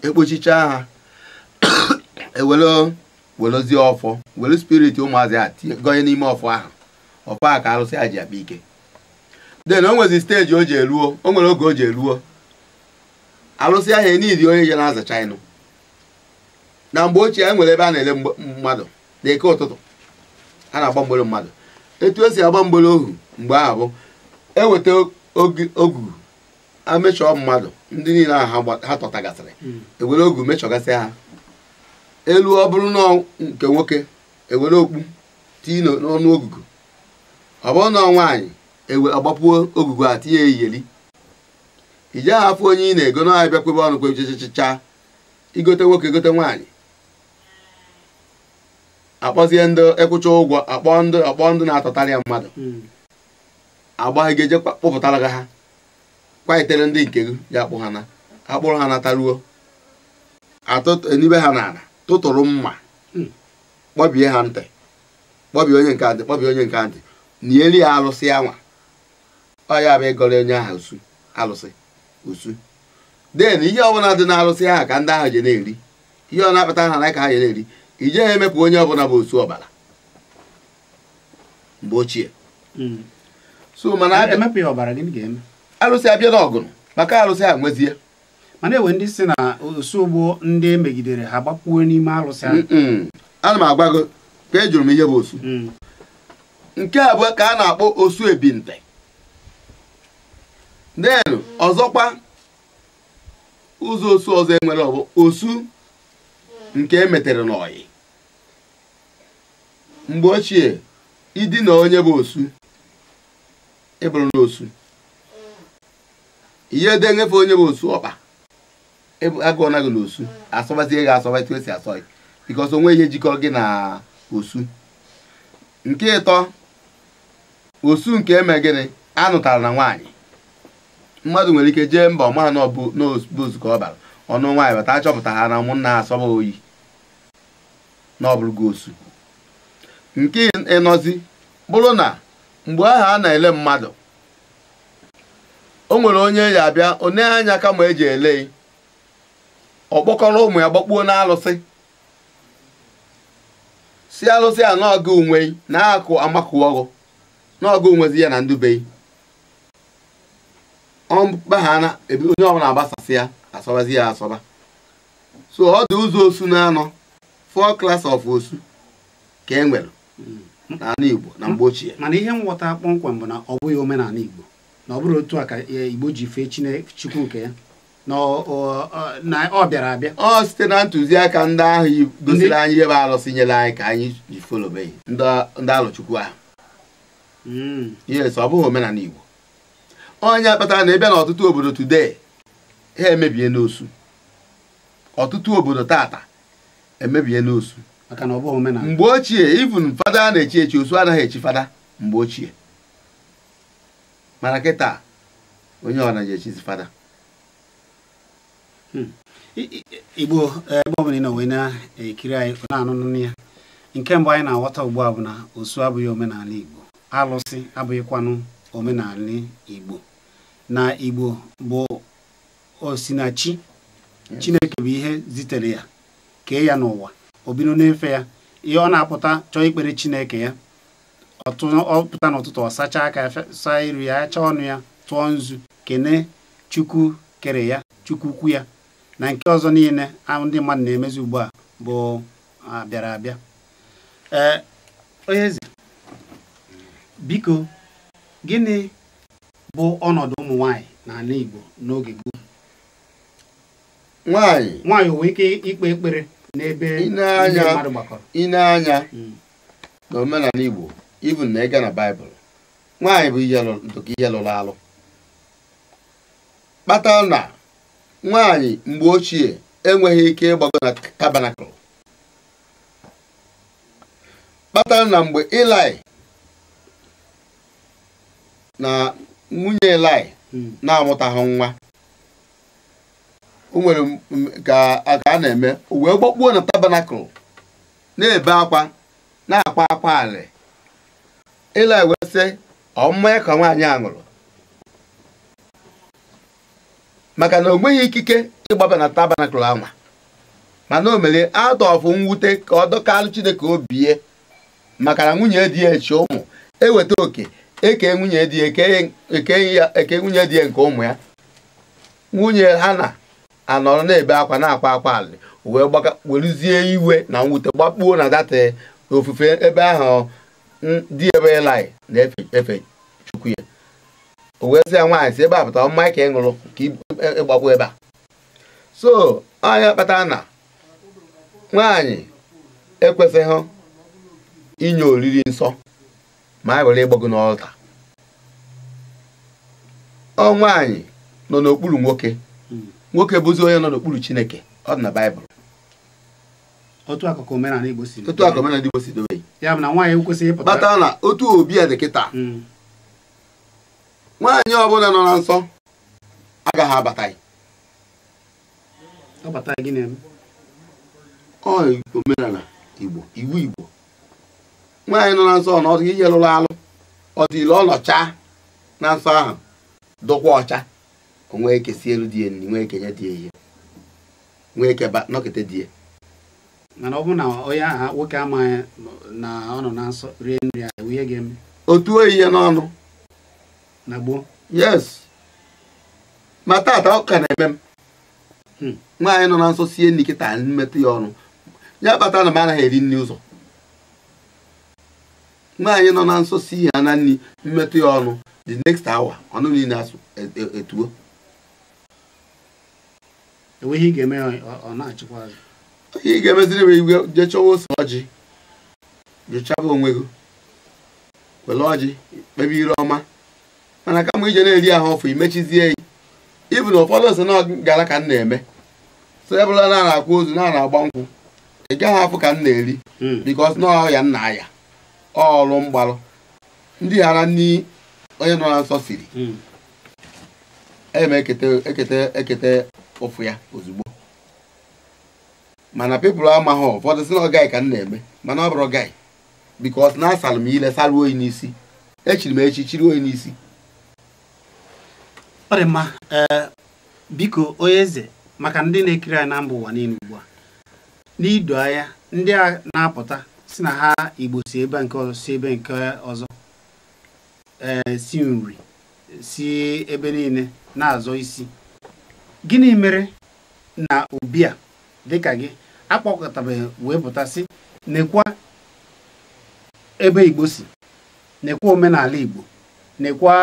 ekpochichaa ha ewere welozie ọfọ were spirit ụmụazị a gọnye n'ime ọfọ ahụ ọfọ a ka alụsị a ji akpa ike den o nwezi steji o ji eruo o nwere oge o ji eruo alụsị ahịa niile onye je na-azacha ịnụ na mgbe ochie e nwere ebe a na-ele mmadụ n'ike ụtụtụ a na-agba mgbere mmadụ etu esi agba mgbere ohu mgbe ahụ bụ e eweta ogu amechọọ mmadụ ndị niile ahụ ha tọtagasịrị hmm. ewere ogu mechọgasị ha elu ọ bụrụ na nke nwoke ewere okpu tii n'ọnụ ogugu ọ bụrụ na nwaanyị ewe agbapuo ogugu a tinye iyeli i jeghị onye ị na-ego na abịa kwebe ọnụ kwe igote nwoke gote nwaanyị akpọzie ndị ịkwụcha ụgwọ akpọ ndị akpọ ndị na-atọtarị ya mmadụ hmm. agbaghị gị eje kpụpụtara gị ha kwaitere ndị nke gị ya akpụ ha na akpụrụ ha nataruo atụenibe ha n'ala tụtụrụ mma hmm. kpọbie ha ntị kpọbie onye nke ntị kpọbie onye nke ntị nieli ya alụsị ya nwa ọ ya bụ ịgọrọ onye ahụ usu alụsị usu den ihe ọbụla dị n'alụsị ahụ ka ndị ahụ je na-eri ihe ọ na-akpata ha na ka ha je na-eri ije ha emepụ onye ọbụla bụ osu ọbara mgbe ochie hmm. so mana alụsị abịa n'ọgụrụ maka alụsị ahụ nwezie mana enwe ndị si na osugbo ndị e megidere ha gbapuo n'ime alụsị ahụ ana m agwa gị ka ejụrụ m ihe bụ osu hmm. nke abụọ ka a na-akpọ osu ebinte Den ọzọkwa ụzọ osu ọzọ enwere ọ osu nke emetere n'ọyị mgbe ochie idina onye bụ osu ịbụrụ e n'osu ihe dị onye bụ osu ọkpa e agụọ na gị n'osu asọbazie gị asọba esi asọ gị bikọs onwe ihe jikọ gị na osu nke ịtọ osu nke eme gịnị anụtara na nwaanyị mmadụ nwere ike jee mba ọma n'ọbụ ozukọ ọ bara ọnụ nwaanyị bata achọpụta ha na ụmụnna asọba oyi na ọ osu nke ịnọzi bụrụ na mgbe ahụ a na-ele mmadụ o nwere onye ya abịa onye anya kama eji ele ọ kpọkọrọ ụmụ ya gbakpuo na alụsị si alụsị a n'ọgụ onwe na akụ amakụọgụ naọgụ onwezi ya na ndube ọmkpaghana onye ọbụla agbasasị ya asọbazi ya asọba so ọ dị ụzọ osu na-anọ four class of osu ka e nwere n'ala Igbo na mgbe ochie mana ihe nghọta kpọmkwem bụ na ọ bụghị omenala Igbo na ọ bụrụ otu a ka e, Igbo ji fee Chukwu nke ya na ọ bịara abịa ọ site na ntụziaka ndị ahụ gosiri anyị ebe bụ arụsị nyere anyị ka anyị ji folobe ndị alụchukwu ahụ hmm. yes ọ bụghị omenala Igbo onye kpatara na ebe na ọtụtụ obodo today ha emebie n'osu ọtụtụ obodo tata emebie n'osu mgbe ochie even fada na-echi echi osu anaghị echi fada mgbe ochie mana kịta onye ọ naghị echizi fada hmm. igbo ebe ọ bụla ị nọ wee na-ekiri anyị na-anụnụ ya nke mbụ anyị na-aghọta ugbu a bụ na osu abụghị omenala igbo alụsị abụghịkwanụ omenala igbo na Igbo bụ osinachi Chineke bụ ihe zitere ya kee ya n'ụwa o bido n'efe ya ihe ọ na-apụta chọọ ikpere Chineke ya ọ pụta n'ụtụtụ ọ sachaa aka iru ya achaa ọnụ ya tụọ nzu kene Chukwu kere ya Chukwu ukwu ya na nke ọzọ niile ndị mmadụ na-emezi ugbu a bụ abịara abịa ee gịnị bụ ọnọdụ ụmụ nwanyị n'ala Igbo n'oge gboo nwanyị nwanyị nwee ike ikpe ekpere n'ebe ndị mmadụ gbakọrọ ineanya hmm. na omenala Igbo ibu na ịga na Baịbụl nwaanyị bụ ndụka ihe lụrụ alụ kpata na nwaanyị mgbe ochie enweghị ike ịgbago na tabanakụl Kpata na mgbe Ilaị na nwunye Elaị hmm. na-amụtaghị nwa o nwere ka a na-eme uwe wee gbakpuo na tabanakụl na-ebe akwa na-akwa akwa ala Elaị wee sị ọ mmanya ka nwaanyị a ṅụrụ maka na o nweghị ikike ịgbaba na tabanakụl anwa mana o mere atọfụ mwute ka ọ dọkalụ Chineke obie maka na nwunye dị ya echi ụmụ eweta oke eke nwunye di ya nke ụmụ ya nwunye ha na-anọrọ na-ebe akwa na-akwa akwa alị wee weruzie iwe na mwute gbakpuo na data ofufe ebe ahụ dị ebe ịlaị na-efe chukwu ya o wee ya nwaanyị si ebe a pụta mma ka ị ṅụrụ ka ịgbakwu e, e, ebe a so anya kpata na nwaanyị ekwesịghị inye oriri nsọ ma a e ghara ịgbọ gị n'ọlta ọ nwaanyị nọ n'okpuru nwoke hmm. nwoke bụzi onye nọ n'okpuru chineke ọ dị na baịbụl otu akụkụ omenala igbo si dobe ya na nwaanyị ekwesịghị ịpụta kpatara na otu obi a dị kịta hmm. nwaanyị ọbụla nọ na nsọ agaghị abata omenala igbo iwu igbo nwaanyị nọ na nsọ ọnọdụ ihe lụrụ alụ ọ dị ile ọnọcha na nsọ ahụ dụkwa ọcha onwee kesi elu dị enyi nwee kenye dị ehi nwee keba nọkịta dị mana ọ bụ na onye aha nwoke amaghị na ọ nọ na nsọ rie nri ahụ ihe ga-eme otu oyi ya n'ọnụ na gboo yes ma taata ọ ka na-eme m hmm. nwaanyị nọ na nsọ sie nri kịta mmetụ ya ọnụ ya kpatara na m anaghị eri nri ụzọ nwaanyị nọ na nsọ si ihe na nri mmetụ ya ọnụ the next hour ọnụ niile e, e, etuo enweghị ị ga-emeziri m igwe jee chọwa ose ọjị jechaba onwe gị were ọjị kpebi ire ọma mana kama ije na-eri ahụ ọfụ imechizie ya ibu na ụfọdụ ose na gara ka m na-eme so ebụla na-akwụ ozu na-agba nkwụ ị gaghị afụ ka m na-eri hmm. bikos na m nna ya ọlụ mgbalụ ndị ghara nni onye nọ na nsọ siri hmm. eme ekete ekete ụfụ ya ozugbo mana pepụl amaghị ụfọdụ si na ọgai ka m na-eme mana ọ bụrụ gị bikos na asalụ m ile sara oyi n'isi echiri m echi chiri oyi n'isi ọ dị mma eh, biko onye eze maka ndị na-ekiri anyị na mba ụwa niile ugbu a n'ido anya ndị a na-apụta si na ha igbo si ebe nke ọzọ ebe nke ọzọ eh, si nri si ebe niile na-azọ isi gịnị mere na ubi a dịka gị akpọkọtabeghị wee pụtasị nekwa ebe igbo si nekwa omenala igbo nekwa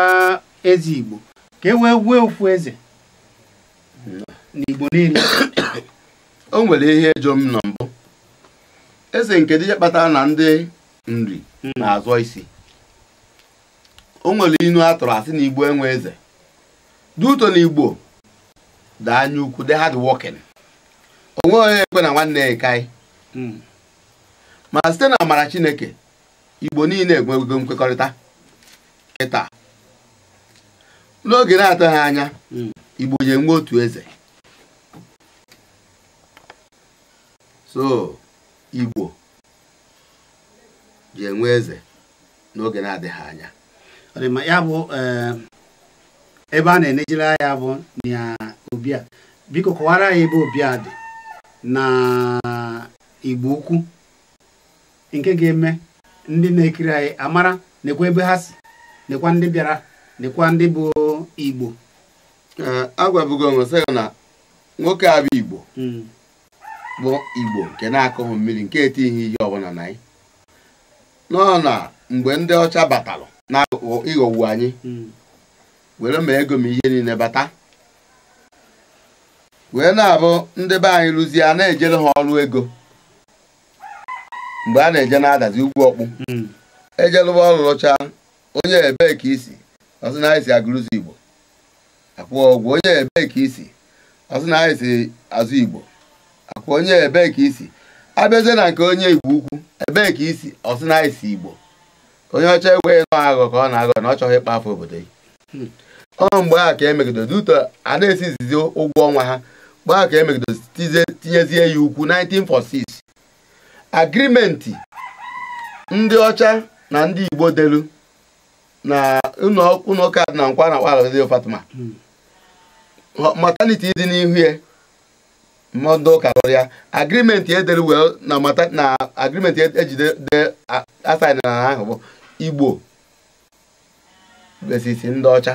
eze igbo ka e wee wee ofu eze n'igbo niile o nwere ihe jọ m na mbụ eze nke dije kpatara na ndị nri hmm. na-azọ isi o nwere inu a tụrụ asị na igbo enwe eze duto na igbo daa anya ukwu dị hardworking onwe onye ekwe na nwanne ya ekai hmm. ma site na amara chineke igbo niile egwego nkwekọrịta kịta n'oge na-atụghị anya hmm. igbo nye nwe otu eze Igbo ji enwe eze n'oge na-adịghị anya ya bụ eh, ebe a na-enejere ya bụ na Obia biko kọwara ya ebe Obia dị na Igbo ukwu nke ga-eme ndị na-ekiri anyị amara nekwa ebe ha si nekwa ndị bịara nekwa ndị bụ Igbo eh, agwabugo onwe sị na nwoke a Igbo hmm. bụ igbo nke na-akụghị mmiri nke etighi ihe ọbụla na anyị nọ na mgbe ndị ọcha batalụ na ịghọwu anyị were ma ego m ihe niile bata wee na-abụ ndị be anyị rụzie a na-ejere ha ọrụ ego mgbe a na-eje na-adazi ugwu ọkpụ ejelụba ọrụ rụcha onye ebee ka isi ọsị na anyị si agụrụzi igbo akwụọ ọgwụ onye ebee ka isi ọsị na anyị si azụ igbo ka onye ebee ka isi abịazie na nke onye igbo ukwu ebee ka isi ọsị na isi igbo onye ọcha ekweghị nọ aghọ ka ọ na-aghọ na ọ chọghị ịkpa afọ obodo gị ọ mgbe a ka emegidoro duto a na-esizizi ụgwọ ọnwa ha mgbe a ka emegidoro tinyezie ya ukwu 1946 agrimenti ndị ọcha na ndị igbo delu na ụlọ ụka na nkwa na kpalụzi Fatima hmm. mataniti dị n'ihu ya mmadụ ụka rụrụ ya agrimenti edere wee na mata na agrimenti e ejide de asaịn ahụ bụ igbo besisi ndị ọcha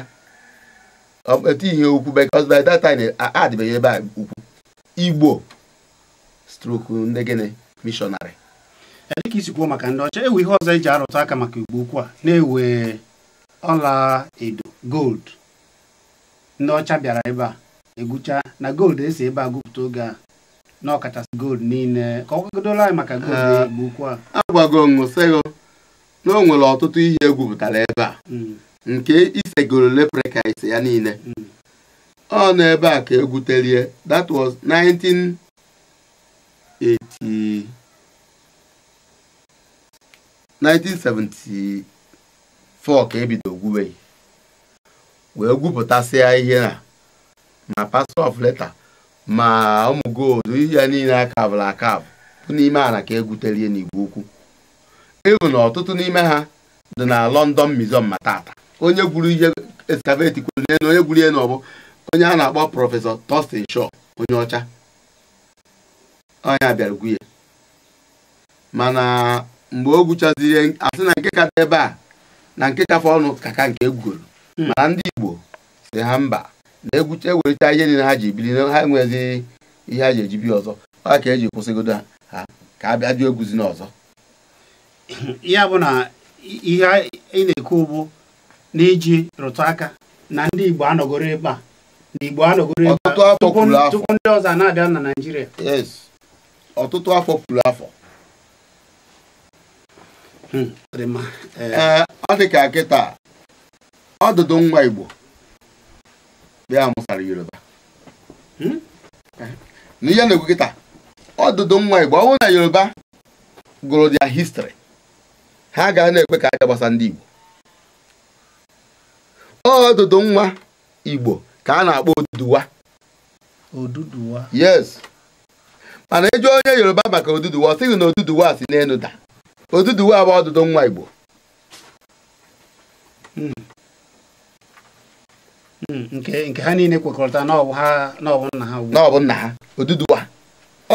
etighị ukwu because by that time adịbeghị ebe a ukwu igbo stroku ndị gịnị mishọnarị dịka isi kwuo maka ndị ọcha ewu ihe ọzọ eji arụtụ aka maka igbo ukwu a na-ewe ọla edo gold ndị ọcha bịara ebe a egwucha na gold esi ebe a gụpụta oge a na ọkachasị gold niile ka ọ kwadola anyị maka gold ah, na-egbu a agwago ṅụsịghị na o nwere ọtụtụ ihe egwupụtara ebe a hmm. nke isegoro lepreka ise ya niile hmm. ọ nọ ebe a ka egwuterie that was 1974 ka ebido gwuwe wee gwupụtasịa ihe a ma pastọ of letter ma ụmụ gold ihe ya niile akabụrụ akabụ n'ime ala ka egwutelie n'igwe ukwu ịhụ na ọtụtụ n'ime ha dị na London Museum ma tata onye gwuru ihe eskaveti kwuru onye gwuru ihe n'ọbụ onye a na-akpọ prọfesọ Thurston Shaw onye ọcha onye bịara ya. mana mgbe o gwuchazi ihe asị na nke ka dị ebe a na nke kafe ọnụ ka ka nke egwugoro hmm. mana ndị Igbo si ha mba na-egwute ewelite ihe niile ha ji bili na ha enweghịzi ihe ha ji eji bi ọzọ ọ ka eji kwụsịgodo ha ka a bịa jụ egwuzi n'ọzọ ya bụ na ihe ị na-ekwu na iji rụtụ aka na ndị Igbo anọgoro ebe a na Igbo anọgoro ebe tupu ndị ọzọ na-abịa na Naịjirịa ọtụtụ afọ pụrụ afọ hmm, ọ dị ka kịta ọdụdụ nwa Igbo ya amụsara yoruba hmm? na ihe na-ekwu kịta ọdụdụ nwa igbo ọ bụrụ na yoruba gụrụ dia histri ha ga na-ekwe ka aka gbasa ndị igbo ọdụdụ nwa igbo ka a na-akpọ oduduwa oduduwa yes mana ịjụ e onye yoruba maka oduduwa ọ sịghị na oduduwa si n'enu da oduduwa bụ ọdụdụ nwa igbo hmm. nke ha niile kwekọrịta n'ọbụ nna ha n'ọbụ nna ha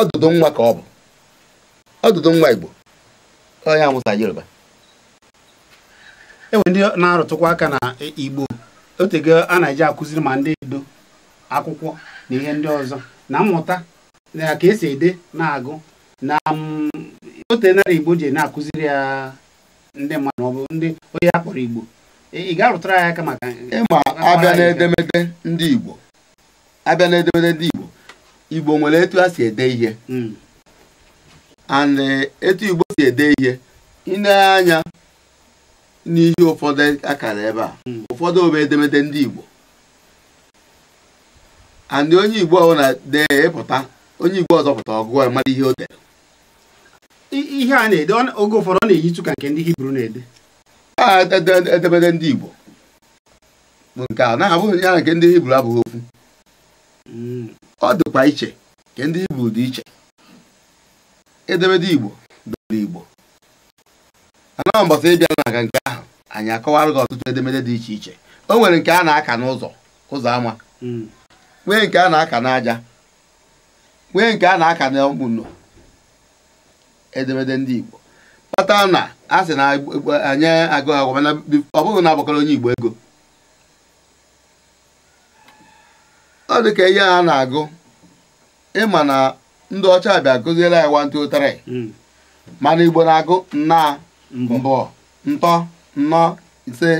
ọdụdụ nwa ka ọ bụ ọdụdụ nwa Igbo onye amụta Yoruba enwe ndị na-arụtụkwa aka na Igbo otego a na-eji akụziri ma ndị edo akwụkwọ na ihe ndị ọzọ na mmụta na ka esi ede na-agụ na ote narị Igbo ji na-akụziri ya ndị mmadụ maọbụ ndị onye a kpọrọ Igbo ị ga-arụtara ya aka maka ịma abịa n'edemede ndị Igbo abịa n'edemede ndị Igbo Igbo nwere etu ha si ede ihe hmm. and eh, etu Igbo si ede ihe na-anya n'ihe ụfọdụ akara ebe a hmm. ụfọdụ obe edemede ndị Igbo and onye Igbo ọhụrụ na-ede ịpụta onye Igbo ọzọpụta pụta ọgụgụ mara ihe o dere ihe a na-ede oge ụfọdụ ọ na-eyitu ka nke ndị Hibru na-ede edemede ah, ndị Igbo bụ nke a na-abụghị ya na nke ndị Hibru abụghị okwu hmm. ọ dịkwa iche nke ndị Hibru dị iche edemede Igbo dịrị Igbo anọghị ịbịa na aga nke ahụ anyị akọwara gị ọtụtụ edemede dị iche iche o nwere nke a na-aka n'ụzọ ụzọ ama hmm. nwee nke a na-aka n'aja nwee nke a na-aka n'ọkpụnọ edemede ndị Igbo kpata na a sị na anyị agụ e, e, agwa mana ọ bụghị na agbakọrọ onye igbo ego ọ dị ka ihe a na-agụ ịma na ndị ọcha bịa ya anyị wantu ụtarị hmm. mana igbo na-agụ nna mbụ ntọ nnọ ise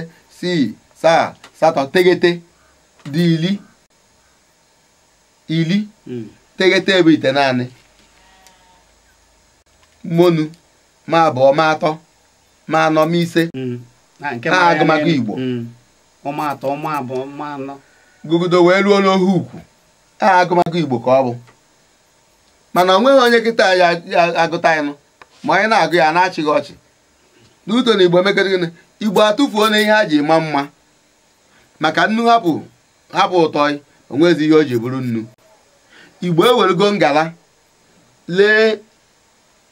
sii saa satọ tegete dị ili ili hmm. tegete ebe ite naanị monu ma abụọ ma atọ ma anọmise ise mm. agụmagụ Igbo mm. gụgụdo wee ruo n'ohe ukwu a agụmagụ Igbo ka ọ bụ mana o nweghị onye kịta ya agụta ịnụ ma onye na-agụ ya na-achịghị ọchị n'uto na Igbo mekere Igbo atụfuo na ihe ha ji ma mma maka nnu hapụ hapụ ụtọ onwezi ihe o ji bụrụ nnu Igbo ewerego ngala lee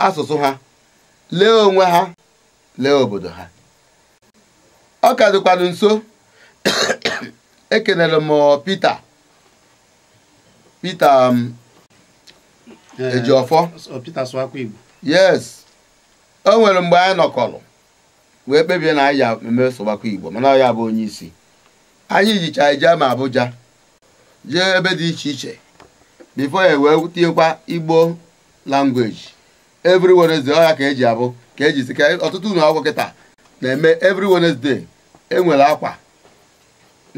asụsụ ha lee onwe ha lee obodo ha ọ ka dịkwanụ nso ekelere m Pita Pita Ejiofọ yes o nwere mgbe anyị nọkọrọ wee kpebie na anyị ya eme Igbo mana ọ bụ onye isi anyị jicha ije ma Abuja jee ebe dị iche iche bifo ya wee tinyekwa Igbo langweji every Wednesday ọ ka eji abụ ka eji si ka ọtụtụ ụlọ akwụkwọ kịta na-eme every Wednesday enwere akwa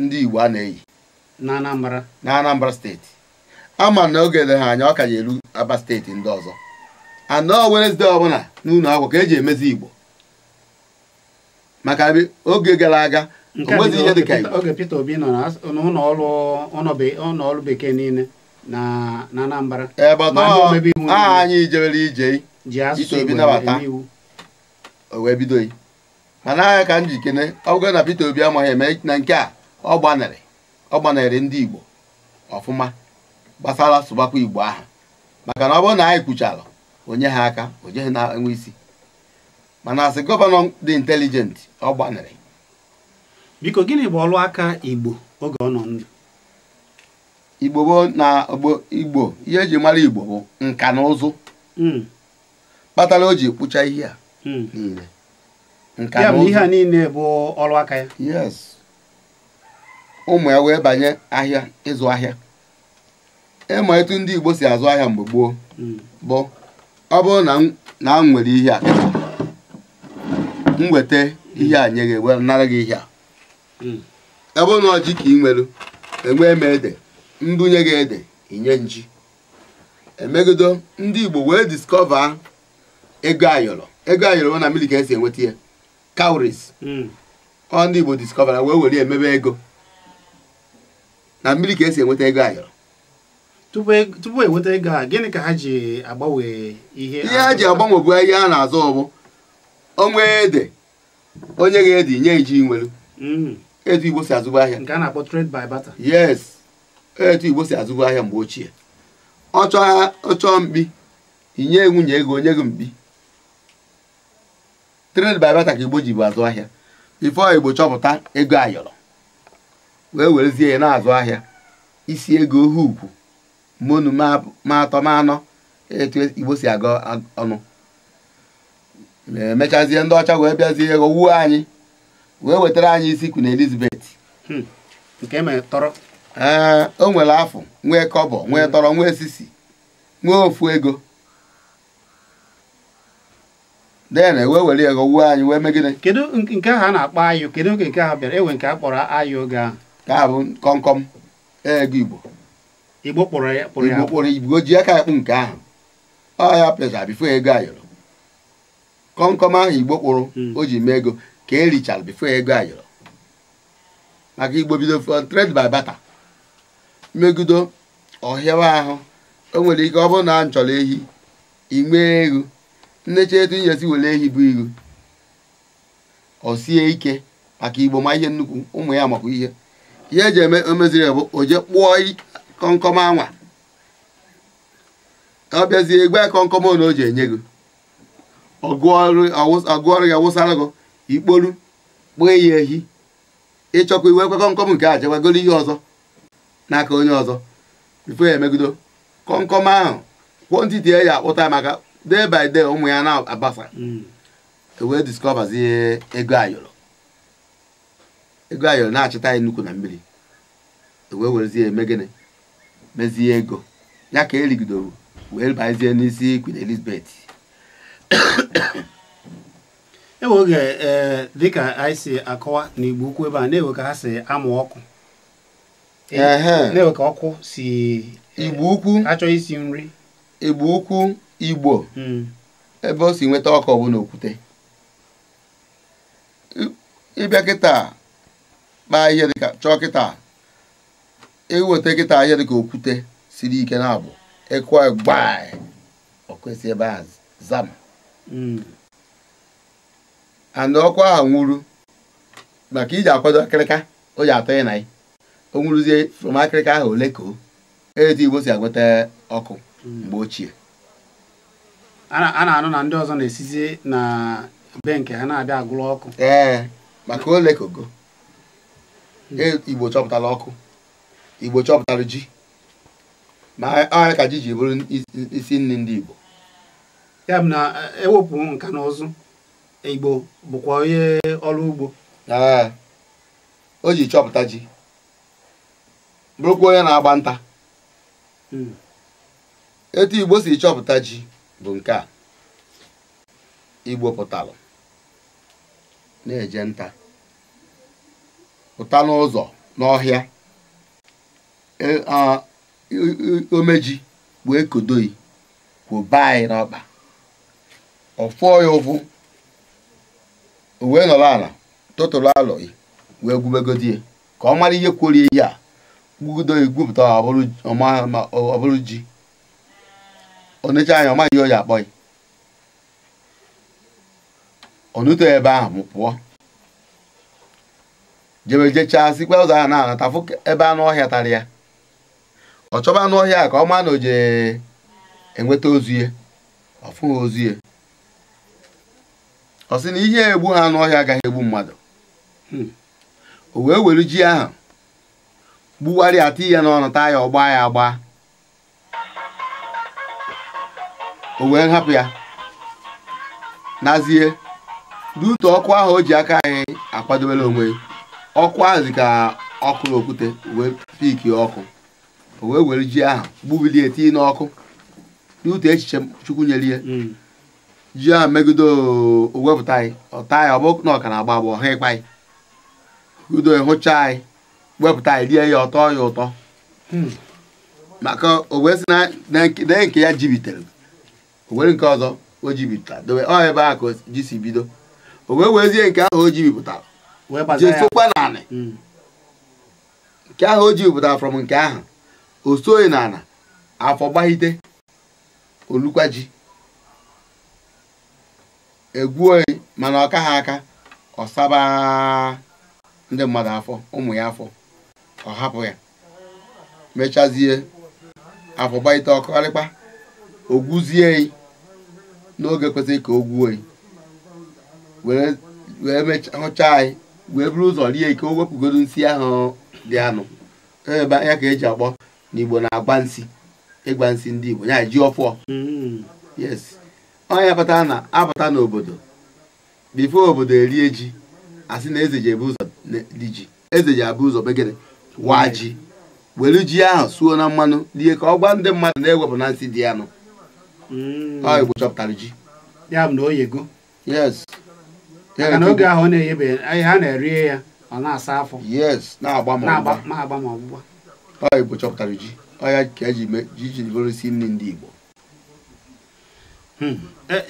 ndị Igbo a na-eyi na Anambra steeti ama na oge dị ha anya ọ ka ya eru Aba steeti ndị ọzọ anọ Wednesday ọbụla n'ụlọ akwụkwọ ka eji emezi Igbo maka oge gara aga oge Peter Obi nọ n'ụlọ bekee niile na Anambra anyị jewere ije ji asụsụ Igbo nabata o wee bido yi mana agha ka m kene ọgụ na Peter Obi amaghị eme na nke a ọ gbanarị ọ gbanarị ndị Igbo ọfụma gbasara sụbakwa Igbo aha maka na ọ bụrụ na anyị kwuchara onye ha aka onye ha na-enwe isi mana asị gọvanọ dị intelijenti ọ gbanarị biko gịnị bụ ọrụ aka Igbo oge ọ nọ ndụ Igbo gboo na Igbo ihe eji mara Igbo bụ nka na ụzụ hmm. kpatara o ji kpụcha ihe a Hmm. niile ya bụ ihe a niile bụ ọrụ aka ya yes ụmụ ya wee banye ahịa ịzụ ahịa ịma e etu ndị Igbo si azụ ahịa mgbe gboo hmm. bụ ọ bụrụ na m nwere ihe a m weta ihe a nye gị wee nara gị ihe a hmm. ọ bụrụ na ọjị ka ị nwere enwee m ede mbunye gị ede inye nji emegido ndị Igbo wee diskọva ego ayọrọ ego ayọrọ na mmiri ka esi enweta ya cowries hmm. ọ ndị Igbo discovera wee were emebe ego na mmiri ka esi enweta ego ayọrọ tupu enweta e ego a gịnị ka ha ji agbanwe ihe ihe ha ji agbanwe bụ ihe a na-azụ ọbụ onwe ede onye ga ede nye iji nwelu hmm. etu Igbo si azụba ahịa nke a na-akpọ trade by barter yes etu Igbo si azụba ahịa mgbe ochie ọ chọọ mkpi inye nwunye ego onye gị mkpi trade by barter ka igbo ji bụ azụ ahịa ifo igbo chọpụta ego ayọrọ wee werezie ya na-azụ ahịa isi ego ohe ukwu monu ma atọ ma anọ etu igbo si aga ọnụ emechazie ndị ọcha wee bịazie ego wuo anyị wee wetara anyị isi na Elizabeth ee hmm. e e, o nwere afọ nwee kọbọ nwee tọrọ nwee sisi nwee ofu ego dena e wee were ya ghọgbuo anyị wee megide kedu nke ahụ a na-akpọ ayụ kedu oge nke ahụ bịara enwe nke a kpọrọ ayụ oge ahụ ka ha bụ kọmkọm e ego igbo igbo kpọrọ ya igbo kpọrọ igbo ji aka akpụ nke ahụ ọ ya pesa bifo ego ayọrọ kọmkọm ahụ igbo kpụrụ hmm. o ji mee ego ka e richara bifo ego ayọrọ maka igbo bido trade by barter megido ọhịawa ahụ o nwere ike ọ bụrụ na m chọrọ ehi inwe ego nnecha etu nyesi were ehi bụ iru ọ sie ike maka igbo ma ihe nnukwu ụmụ ya makwa ihe ihe eji eme omeziri bụ oje kpụọ kọnkọm anwa ọ bịazie kọnkọm na o ji enye gị ọgụọrụ ya wụsara gị ikporu kpụọ ya ehi ịchọkwa iwekwe kọnkọm nke a jewagoro ihe ọzọ n'aka onye ọzọ bifo ya emegido kọnkọm ahụ kwụ ntị tie ya akpụta maka day by day ụmụ ya na-abasa mm. e wee discovers ego ayọrọ ego ayọrọ na-achịta ya nnukwu na mmiri e wee werezie eme gịnị mezie ego ya ka erigidoro wee bazie n'isi Queen Elizabeth enwe oge eh, dịka anyị si akọwa n'igbu ukwu ebe a na-ewe ka ha si amụ ọkụ na-ewe ka ọkụ si eh, igbo ukwu achọ isi nri igbo ukwu igbo hmm. ebe o si nweta ọkụ ọbụla okwute ịbịa kịta kpaa ihe dịka chọọ kịta iweta kịta ihe dịka okwute siri ike na-abụ ịkụ gbaị okwesị ebe a zam hmm. ana ọkụ ahụ nwụrụ maka iji akwado akịrịka o ji atọ ịna o nwụrụzie from akịrịka ahụ ole ka o etu igbo si agweta ọkụ hmm. mgbe ochie a na-anụ na ndị ọzọ na-esizi na be nke ha na-abịa agụlọ ọkụ ee maka ole koko e, igbo chọpụtara ọkụ igbo chọpụtara ji ma ọrịa ka ji ji bụrụ isi nri ndị igbo ya bụ na ewepụ e nka na ụzụ igbo bụkwa onye ọrụ ugbo ee o ji chọpụta ji bụrụkwa onye na-agba nta hmm. etu igbo si chọpụta ji bụ nke a igbo pụtalụ na-eje nta pụta n'ụzọ n'ọhịa e, omeji bụ ekodoyi kwụba anyị n'ọkpa ọfụọ ya ụfụ wee nọrọ ala tụtụrụ alọghị wee gwubegodi ka ọ mara ihe kwori ihe a gwugodo gwupụta ọ bụrụ ji onecha anya ọmaghị oyi akpọ ya onuto ebe ahụ m pụọ jebe jechaa sikwa ụzọ ahụ na-anata ebe anụ ọhịa tarị ya ọ chọba anụ ọhịa ka ọ ma na oje enweta ozuye ọfụghị ozuye ọ sị na ihe egbu ha anụ ọhịa agaghị egbu mmadụ hmm. o wee were ji ahụ gbugharịa ati ya n'ọnụ taa ya ọgba ya agba o wee hapụ ya nazie dutu ọkụ ahụ o ji aka anyị akwadobere onwe ọkụ ahụ dị ka ọkụ okwute wee piki ọkụ o wee were ji ahụ gbubilie etinye n'ọkụ n'ute echiche chukwu nyere ya hmm. ji ahụ megide owepụta anyị ọta anyị ọ bụ na na-agba agbọ ha ịkpa anyị udo hụcha anyị wepụta anyị rie ya ọtọ ya ụtọ hmm. maka o wee na nke ya jibitere onwere nke ọzọ o bipụta dobe ọ ebe ahụ ka ji si bido o wee wezie nke ahụ o jibipụtara jee sokwa n'anị hmm. nke ahụ o jibipụtara from nke ahụ o soghị n'ala afọ gbahite olukwa ji e oyi mana ọka ha aka ọsaba ndị mmadụ afọ ụmụ ya afọ ọ hapụ ya mechazie afọ gbahite ọkọrịkpa ogwuzie n'oge kwesịrị ka o gwuo wee hụchaa anyị wee buru ụzọ rie ike o wepụgodo nsị ahụ dị anụ e ebe ya ka eji akpọ na igbo na-agba nsị ịgba nsị ndị igbo ya ji ọfọ mm. yes onye pụtara na apata n'obodo bifo obodo erie ji asị na eze ji ebu ụzọ ji eze ji abụ ụzọ begere waa ji were ji ahụ suo na mmanụ rie ka ọ gwa ndị mmadụ na-ewepụ na nsị dị anụ Mm. ha Igbo chọpụtara ji ya bụ na o yego yes maka na oge ahụ ọ na-eyebe ha na-erie ya ọ na-asa afọ yes na-agba ma ọgbụgba ha Igbo chọpụtara hmm. ji ọya ka eji eh, jijiri bụrụsi nri ndị Igbo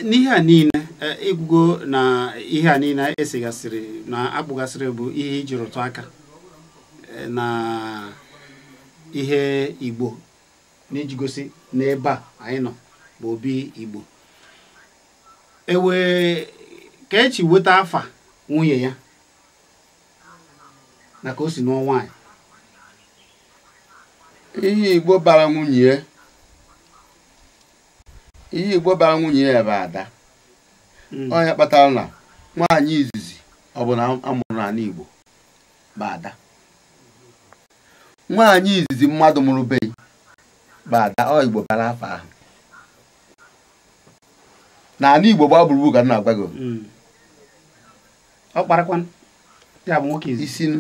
n'ihe a niile eh, ịgwụgo na ihe a niile esigasịrị na akpụgasịrị bụ ihe iji rụtụ aka eh, na ihe Igbo na-ejigosi n'ebe a anyị nọ bụ obi igbo ewee ka echi weta afa nwunye ya na ka o si nụọ anyị. ihe igbo bara nwunye ihe igbo bara nwunye ya bụ ada onye hmm. kpatara na nwaanyị izizi ọ bụ na amụrụ n'ala igbo bụ ada nwaanyị izizi mmadụ mụrụ beghị bụ ada ọ igbo bara afa ahụ na ala Igbo gbaa gburugburu ka m na-agwa gị hmm. ọ kparakwan ya bụ nwoke isinu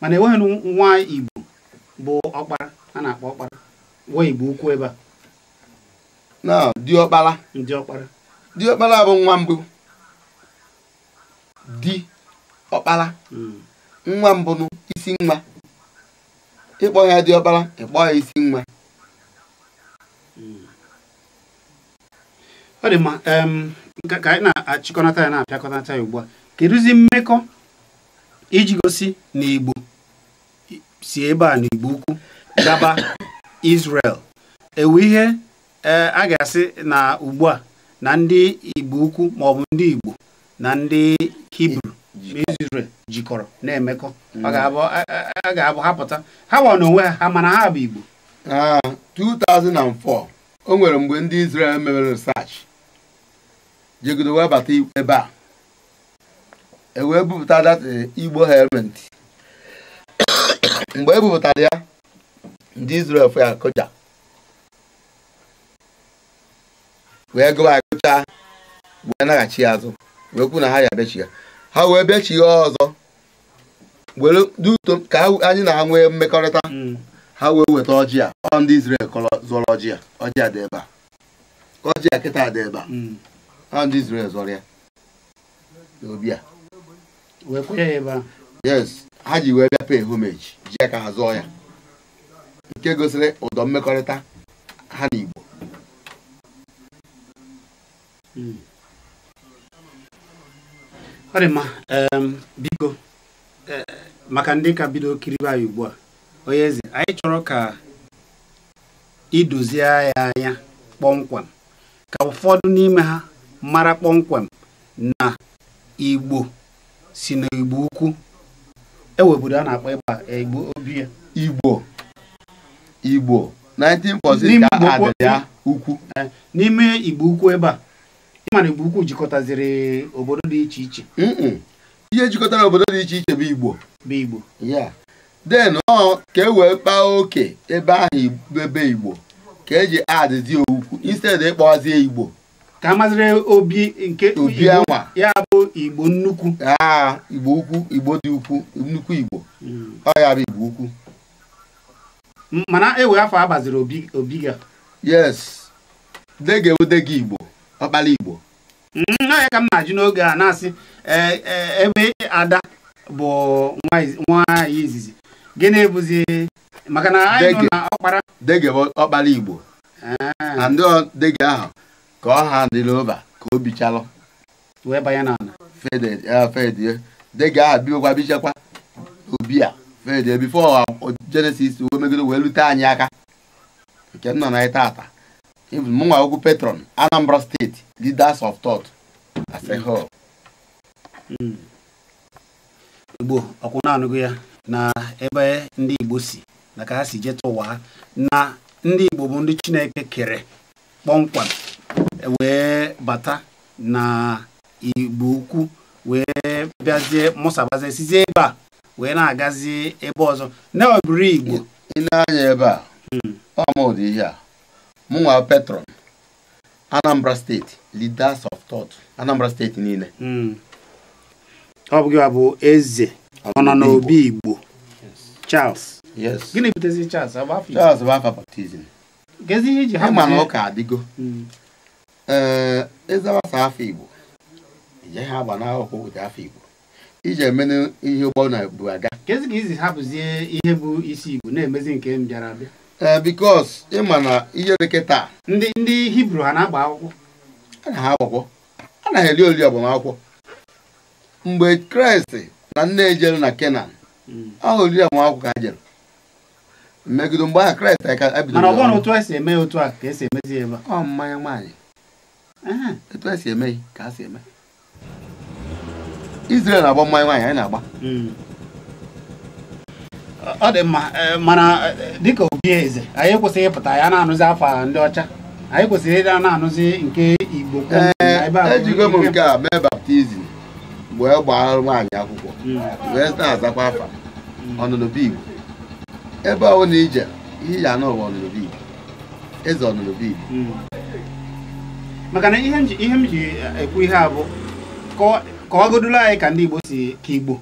mana enweghị nwa Igbo bụ ọkpara a na-akpọ ọkpara nwa Igbo ukwu ebe a na diọkpara diọkpara diọkpara bụ nwa mbụ di ọkpara hmm. nwa mbụ isi nwa ịkpọ ya diọkpara ịkpọ ya isi nwa ọ dị mma ka anyị na-achịkọnata ya na-apịakọnata ya ugbu a kedụzi mmekọ iji gosi na Igbo si ebe a n'Igbo ukwu gaba Israel ewu ihe e, a ga-asị na ugbu a na ndị Igbo ukwu maọbụ ndị Igbo na ndị Hibru Israel jikọrọ na-emekọ mm. a ga-abụ hapụta ha gba n'onwe ha ha mana ha bụ Igbo 2004 ah, o nwere mgbe ndị Israel mere jegodo wee bata ebe a e wee bupụta dat eh, igbo helmet mgbe e bupụtara ya ndị Israel fụ ya kụja wee gụwa akụcha wee naghachi ya azụ wee kwu na ha ya bechi ya ha wee bechi ya ọzọ were duto ka anyị na-anwe mmekọrịta mm. ha wee weta ọjị a ọ ndị Israel kọrọ zụrụ ọjị a ọjị dị ebe a kịta dị ebe a mm. ha ndị Israel zọrọ ya obi a yes ha ji wee bịa pay homage ji aka ha zụọ ya nke gosiri ụdọ mmekọrịta ha na Igbo hmm. ọ biko e, maka ndị ka bido kiribe ugbu a onye eze anyị chọrọ ka idozie ya anya kpọmkwem ka ụfọdụ n'ime ha mara kpọmkwem na igbo si na igbo ukwu eweburu a na-akpọ e, ịgba igbo obi ya igbo igbo 19% ya ukwu eh, n'ime igbo ukwu ebe a ịmara na igbo ukwu jikọtaziri obodo dị iche iche ihe jikọtara obodo dị iche iche bụ igbo bụ igbo ya den ọ ka e wee kpaa oke ebe ahụ ebe igbo ka eji adịzi okwu instead ịkpọzie e igbo ka amaziri obi nke ya bụ igbo nnukwu igbo ukwu igbo dị ukwu nnukwu igbo hmm. ọ ya bụ igbo ukwu mana ewe afọ agbaziri obi gị yes dege odege igbo ọkpala igbo hmm, ya ka m na-ajụ n'oge a na-asị e, e, ebe ada bụ nwaanyị izizi gịnị bụzi maka na anyị nọ na ọkpara dege ọkpala igbo na ah. ndị dege ahụ ka ọ ha dịla ụba ka o bichalụ fedie dịga bichakwa obi a fede bifo jenesis wee megide wee lute anyị aka nke nọ na mụnwa okwu petron anambra steeti leaders of asehol hmm. igbo ọkwụ na ya na ebe ndị igbo ụwa ha na ndị igbo ndị chineke kere kpọmkwem wee bata na igbo ukwu wee bịazie mụsabazie sizie ebe a wee na-agazi ebe ọzọ na igbo ịna-anya ebe a hmm. ọmụdị ihe a mụnwa petron anambra steeti leaders of thought anambra steeti niile hmm. ọ bụghị abụ eze ọ nọ n'obi igbo charles gịnị butezi charles charles bụ afa Ha ịma na ọka adịgo hmm. ee ịzawasa afọ igbo ije ha agba n'akwụkwọ weta afọ igbo iji emenụ ihe ụgbọ na-ebu aga kezi ka izi hapụzie ihe bụ isi igbo na-emezi nke m bịara abịa ee bikos ịma na ihe dịka taa ndị ndị hibru ha na-agba akwụkwọ a na ha akwụkwọ a na ha eri ori agbamakwụkwọ mgbe kraịst na nne ejere na kenan hmm. ahụ oriri agbamakwụkwọ ka ha jere megide mgbe ahụ kraịst ka ebidoro e ọ mmanya nwaanyị etu a si eme ka a si eme Israel na-agba mmanya nwaanyị anyị na-agba hmm. ọ dị mma eh, mana eh, dịka obi eze anyị kwesịghị ịpụta ya na-anụzi afọ ndị ọcha anyị kwụsịrị ịda na-anụzi nke Igbo ejigo eh, e m nke a mee baptizim wee gbaa nwaanyị akwụkwọ hmm. wee na-azakwa afa hmm. ọnụnụbe Igbo ebe ọ bụla ije ihe ya n'ụwa ọnụnụbe Igbo eze ọnụnụbe Igbo maka na ihe m ji eh, ekwu ihe a bụ ka kọwagodula anyị ka ndị Igbo si ka Igbo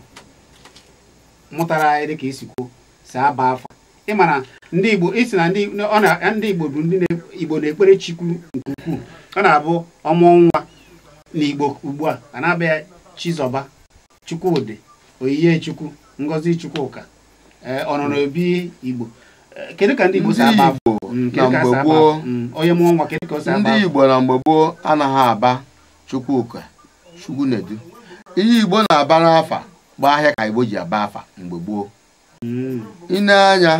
mụtara anyị dịka esi kwuo si aba afọ ma na ndị Igbo isi na ndị Igbo bụ ndị Igbo na-ekpere Chukwu nke ukwuu ọ na-abụ ọmụ nwa na Igbo ugbu a a na-aba Chizọba Chukwudị Oyiye Chukwu Ngozi Chukwuka eh, ọnọrọ obi Igbo kedu ka ndị Igbo si agba bụ na mgbe gboo hmm, onye mụọ nwa kedu ka o si ndị Igbo na mgbe gboo anaghị aba Chukwuka Chukwunedu ihe Igbo na-aba n'afa bụ ahịa ka Igbo ji aba afa mgbe gboo ine hmm. anya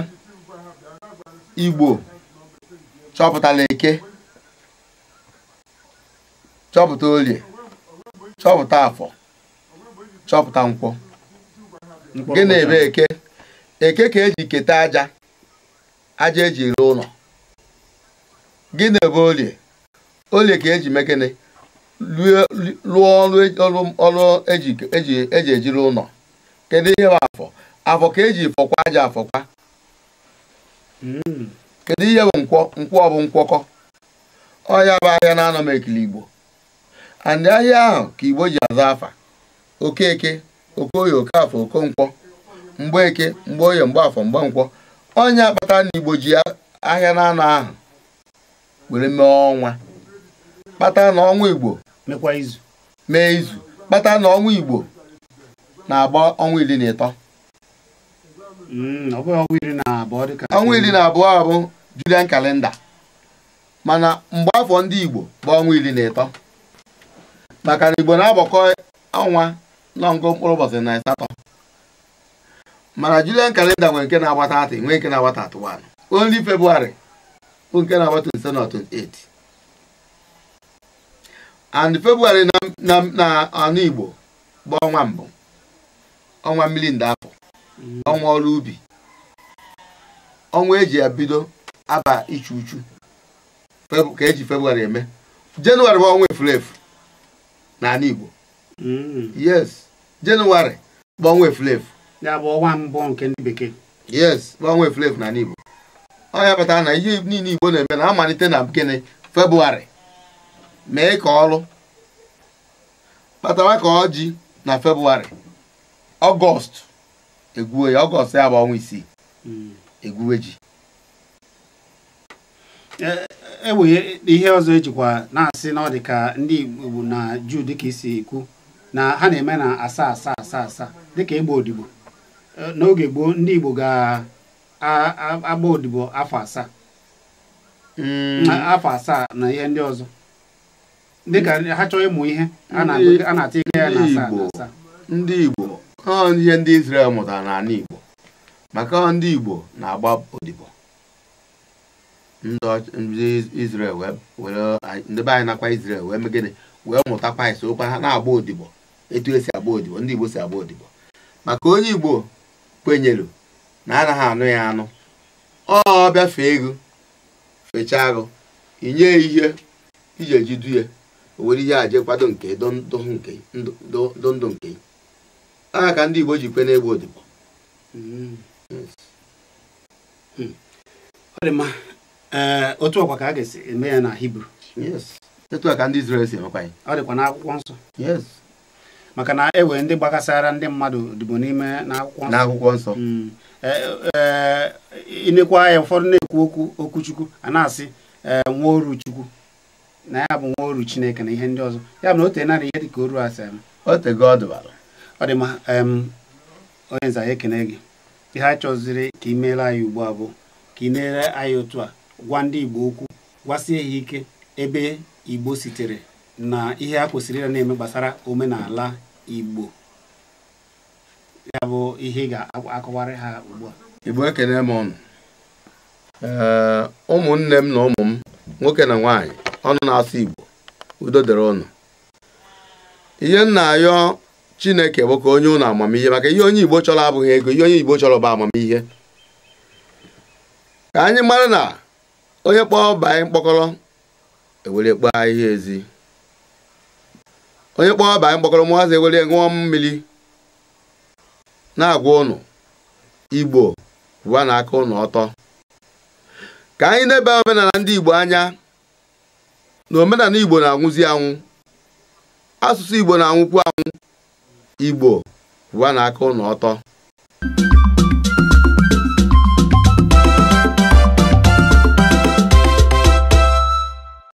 Igbo chọpụtala eke chọpụta olie chọpụta afọ chọpụta nkwọ na ebe eke eke ka eji keta aja aja eji ere ụlọ gịnị bụ olie olie ka eji mekene lụọ ọrụ eji ejiri ụlọ kedu ihe bụ afọ afọ ka eji fọkwa aja afọkwa kedu ihe bụ nkwọ nkwọ bụ nkwọkọ ọya bụ ahịa na-anọ m ekili igbo andị ahịa ahụ ka igbo ji aza afa okeke okoye okafọ okonkwọ mgbe eke mgbe oye mgbe afọ mgbe nkwọ onye akpata na igbo ji ahịa na ahụ were mee ọnwa kpata na igbo mee izu kpata na ọnwa igbo na-agba ọnwa iri na ịtọ mm, ọnwa iri na abụọ abụ julian kalenda mana mgbe afọ ndị igbo bụ ọnwa iri na ịtọ maka na igbo na-agbakọ ọnwa na ngụ mkpụrụ ụbọchị na asatọ mana julian kalenda nwere nke na-agbata atị nwee nke na-agbata atụ 1 only february bụ nke na-agbata 27 na 28 and february na anụ igbo bụ ọnwa mbụ ọnwa mmiri ndị afọ ọnwa ọrụ ubi ọnwa eji ya bido aba ichu uchu ka eji february eme jenụwarị bụ ọnwa efulefu n'ala igbo yes jenụwarị bụ ọnwa efu. ya bụ ọnwa mbụ nke ndị bekee yes ọnwa eflefu na n'Igbo ọ ya na ihe niile Igbo na-eme na amalite na gịnị Febụwarị mee ka ọrụ kpatawa ka ọjị na Febụwarị ọgọst egwuwe ya ọgọst ya bụ ọnwa isii hmm. egwuwe ji e, e, e, ihe ọzọ ejikwa na-asị na ọ dị ka ndị Igbo na Juu dịka isi ekwu na ha na-eme na asaa asaa asaa asaa dịka ịgba odibo n'oge gboo ndị Igbo ga-agba odibo afọ asaa mm. afọ asaa na ihe ndị ọzọ dịka ha chọọ ịmụ ihe a na-ata ego ya na asaa na asaa ndị Igbo ihe ndị Israel mụtara n'ala Igbo maka ndị Igbo na-agba odibo ndị Israel ndị be anyị nakwa Izrel wee megide wee mụta Kraịst okwa ha na-agba odibo etu esi agba odibo ndị Igbo si agba odibo maka onye Igbo kwenyelu na anaghị anụ ya anụ ọ fee ego fechaa agụ inye ihe iji eji du ya o nwere ihe a kwado nke ndụ ndụ nke aha ka ndị Igbo ji kwe n'egbe odibo hmm. otu ọkwa ka a ga-esi eme ya na Hibru etu a ka ndị Izrel si emekwa ya ọ dịkwa n'akwụkwọ nsọ maka na ewe ndị gbakasara ndị mmadụ dịbụ n'ime n'akwụkwọ nsọ ịnekwa mm. eh, eh, eh, ya ụfọdụ na-ekwu okwu okwuchukwu a na-asị nwa oru chukwu na ya bụ nwa oru chineke na ihe ndị ọzọ ya bụ na o tenara ihe dịka oru asaa o ọ dị onye nza ekene gị ihe a chọziri ka ị meere anyị ugbu a bụ ka ị na-ere anyị otu a gwa ndị igbo okwu gwasie ya ike ebe igbo sitere na ihe a kwesịrị ịra na-eme gbasara omenala igbo ya bụ ihe ga-akọwarị ha ugbu a igbo ekene m ọnụ ụmụnne m na ụmụ m nwoke na nwaanyị ọnụ na-asụ igbo udo dịrị ụnụ ihe m na-ayọ chineke bụ ka onye ụnụ amamihe maka ihe onye igbo chọrọ abụghị ego ihe onye igbo chọrọ bụ amamihe ka anyị mara na onye kpọọ anyị mkpọkọrọ ewere kpọọ ihe ezi onye kpọọ anyị kpọkọrọ ụmụazị Nwere ṅụọ mmiri na-agwa ụnụ igbo bụwa na aka ụnụ ọtọ ka anyị na-ebe omenala ndị igbo anya na omenala igbo na-anwụzi anwụ asụsụ igbo na-anwụkwu anwụ igbo bụwa na aka ụnụ ọtọ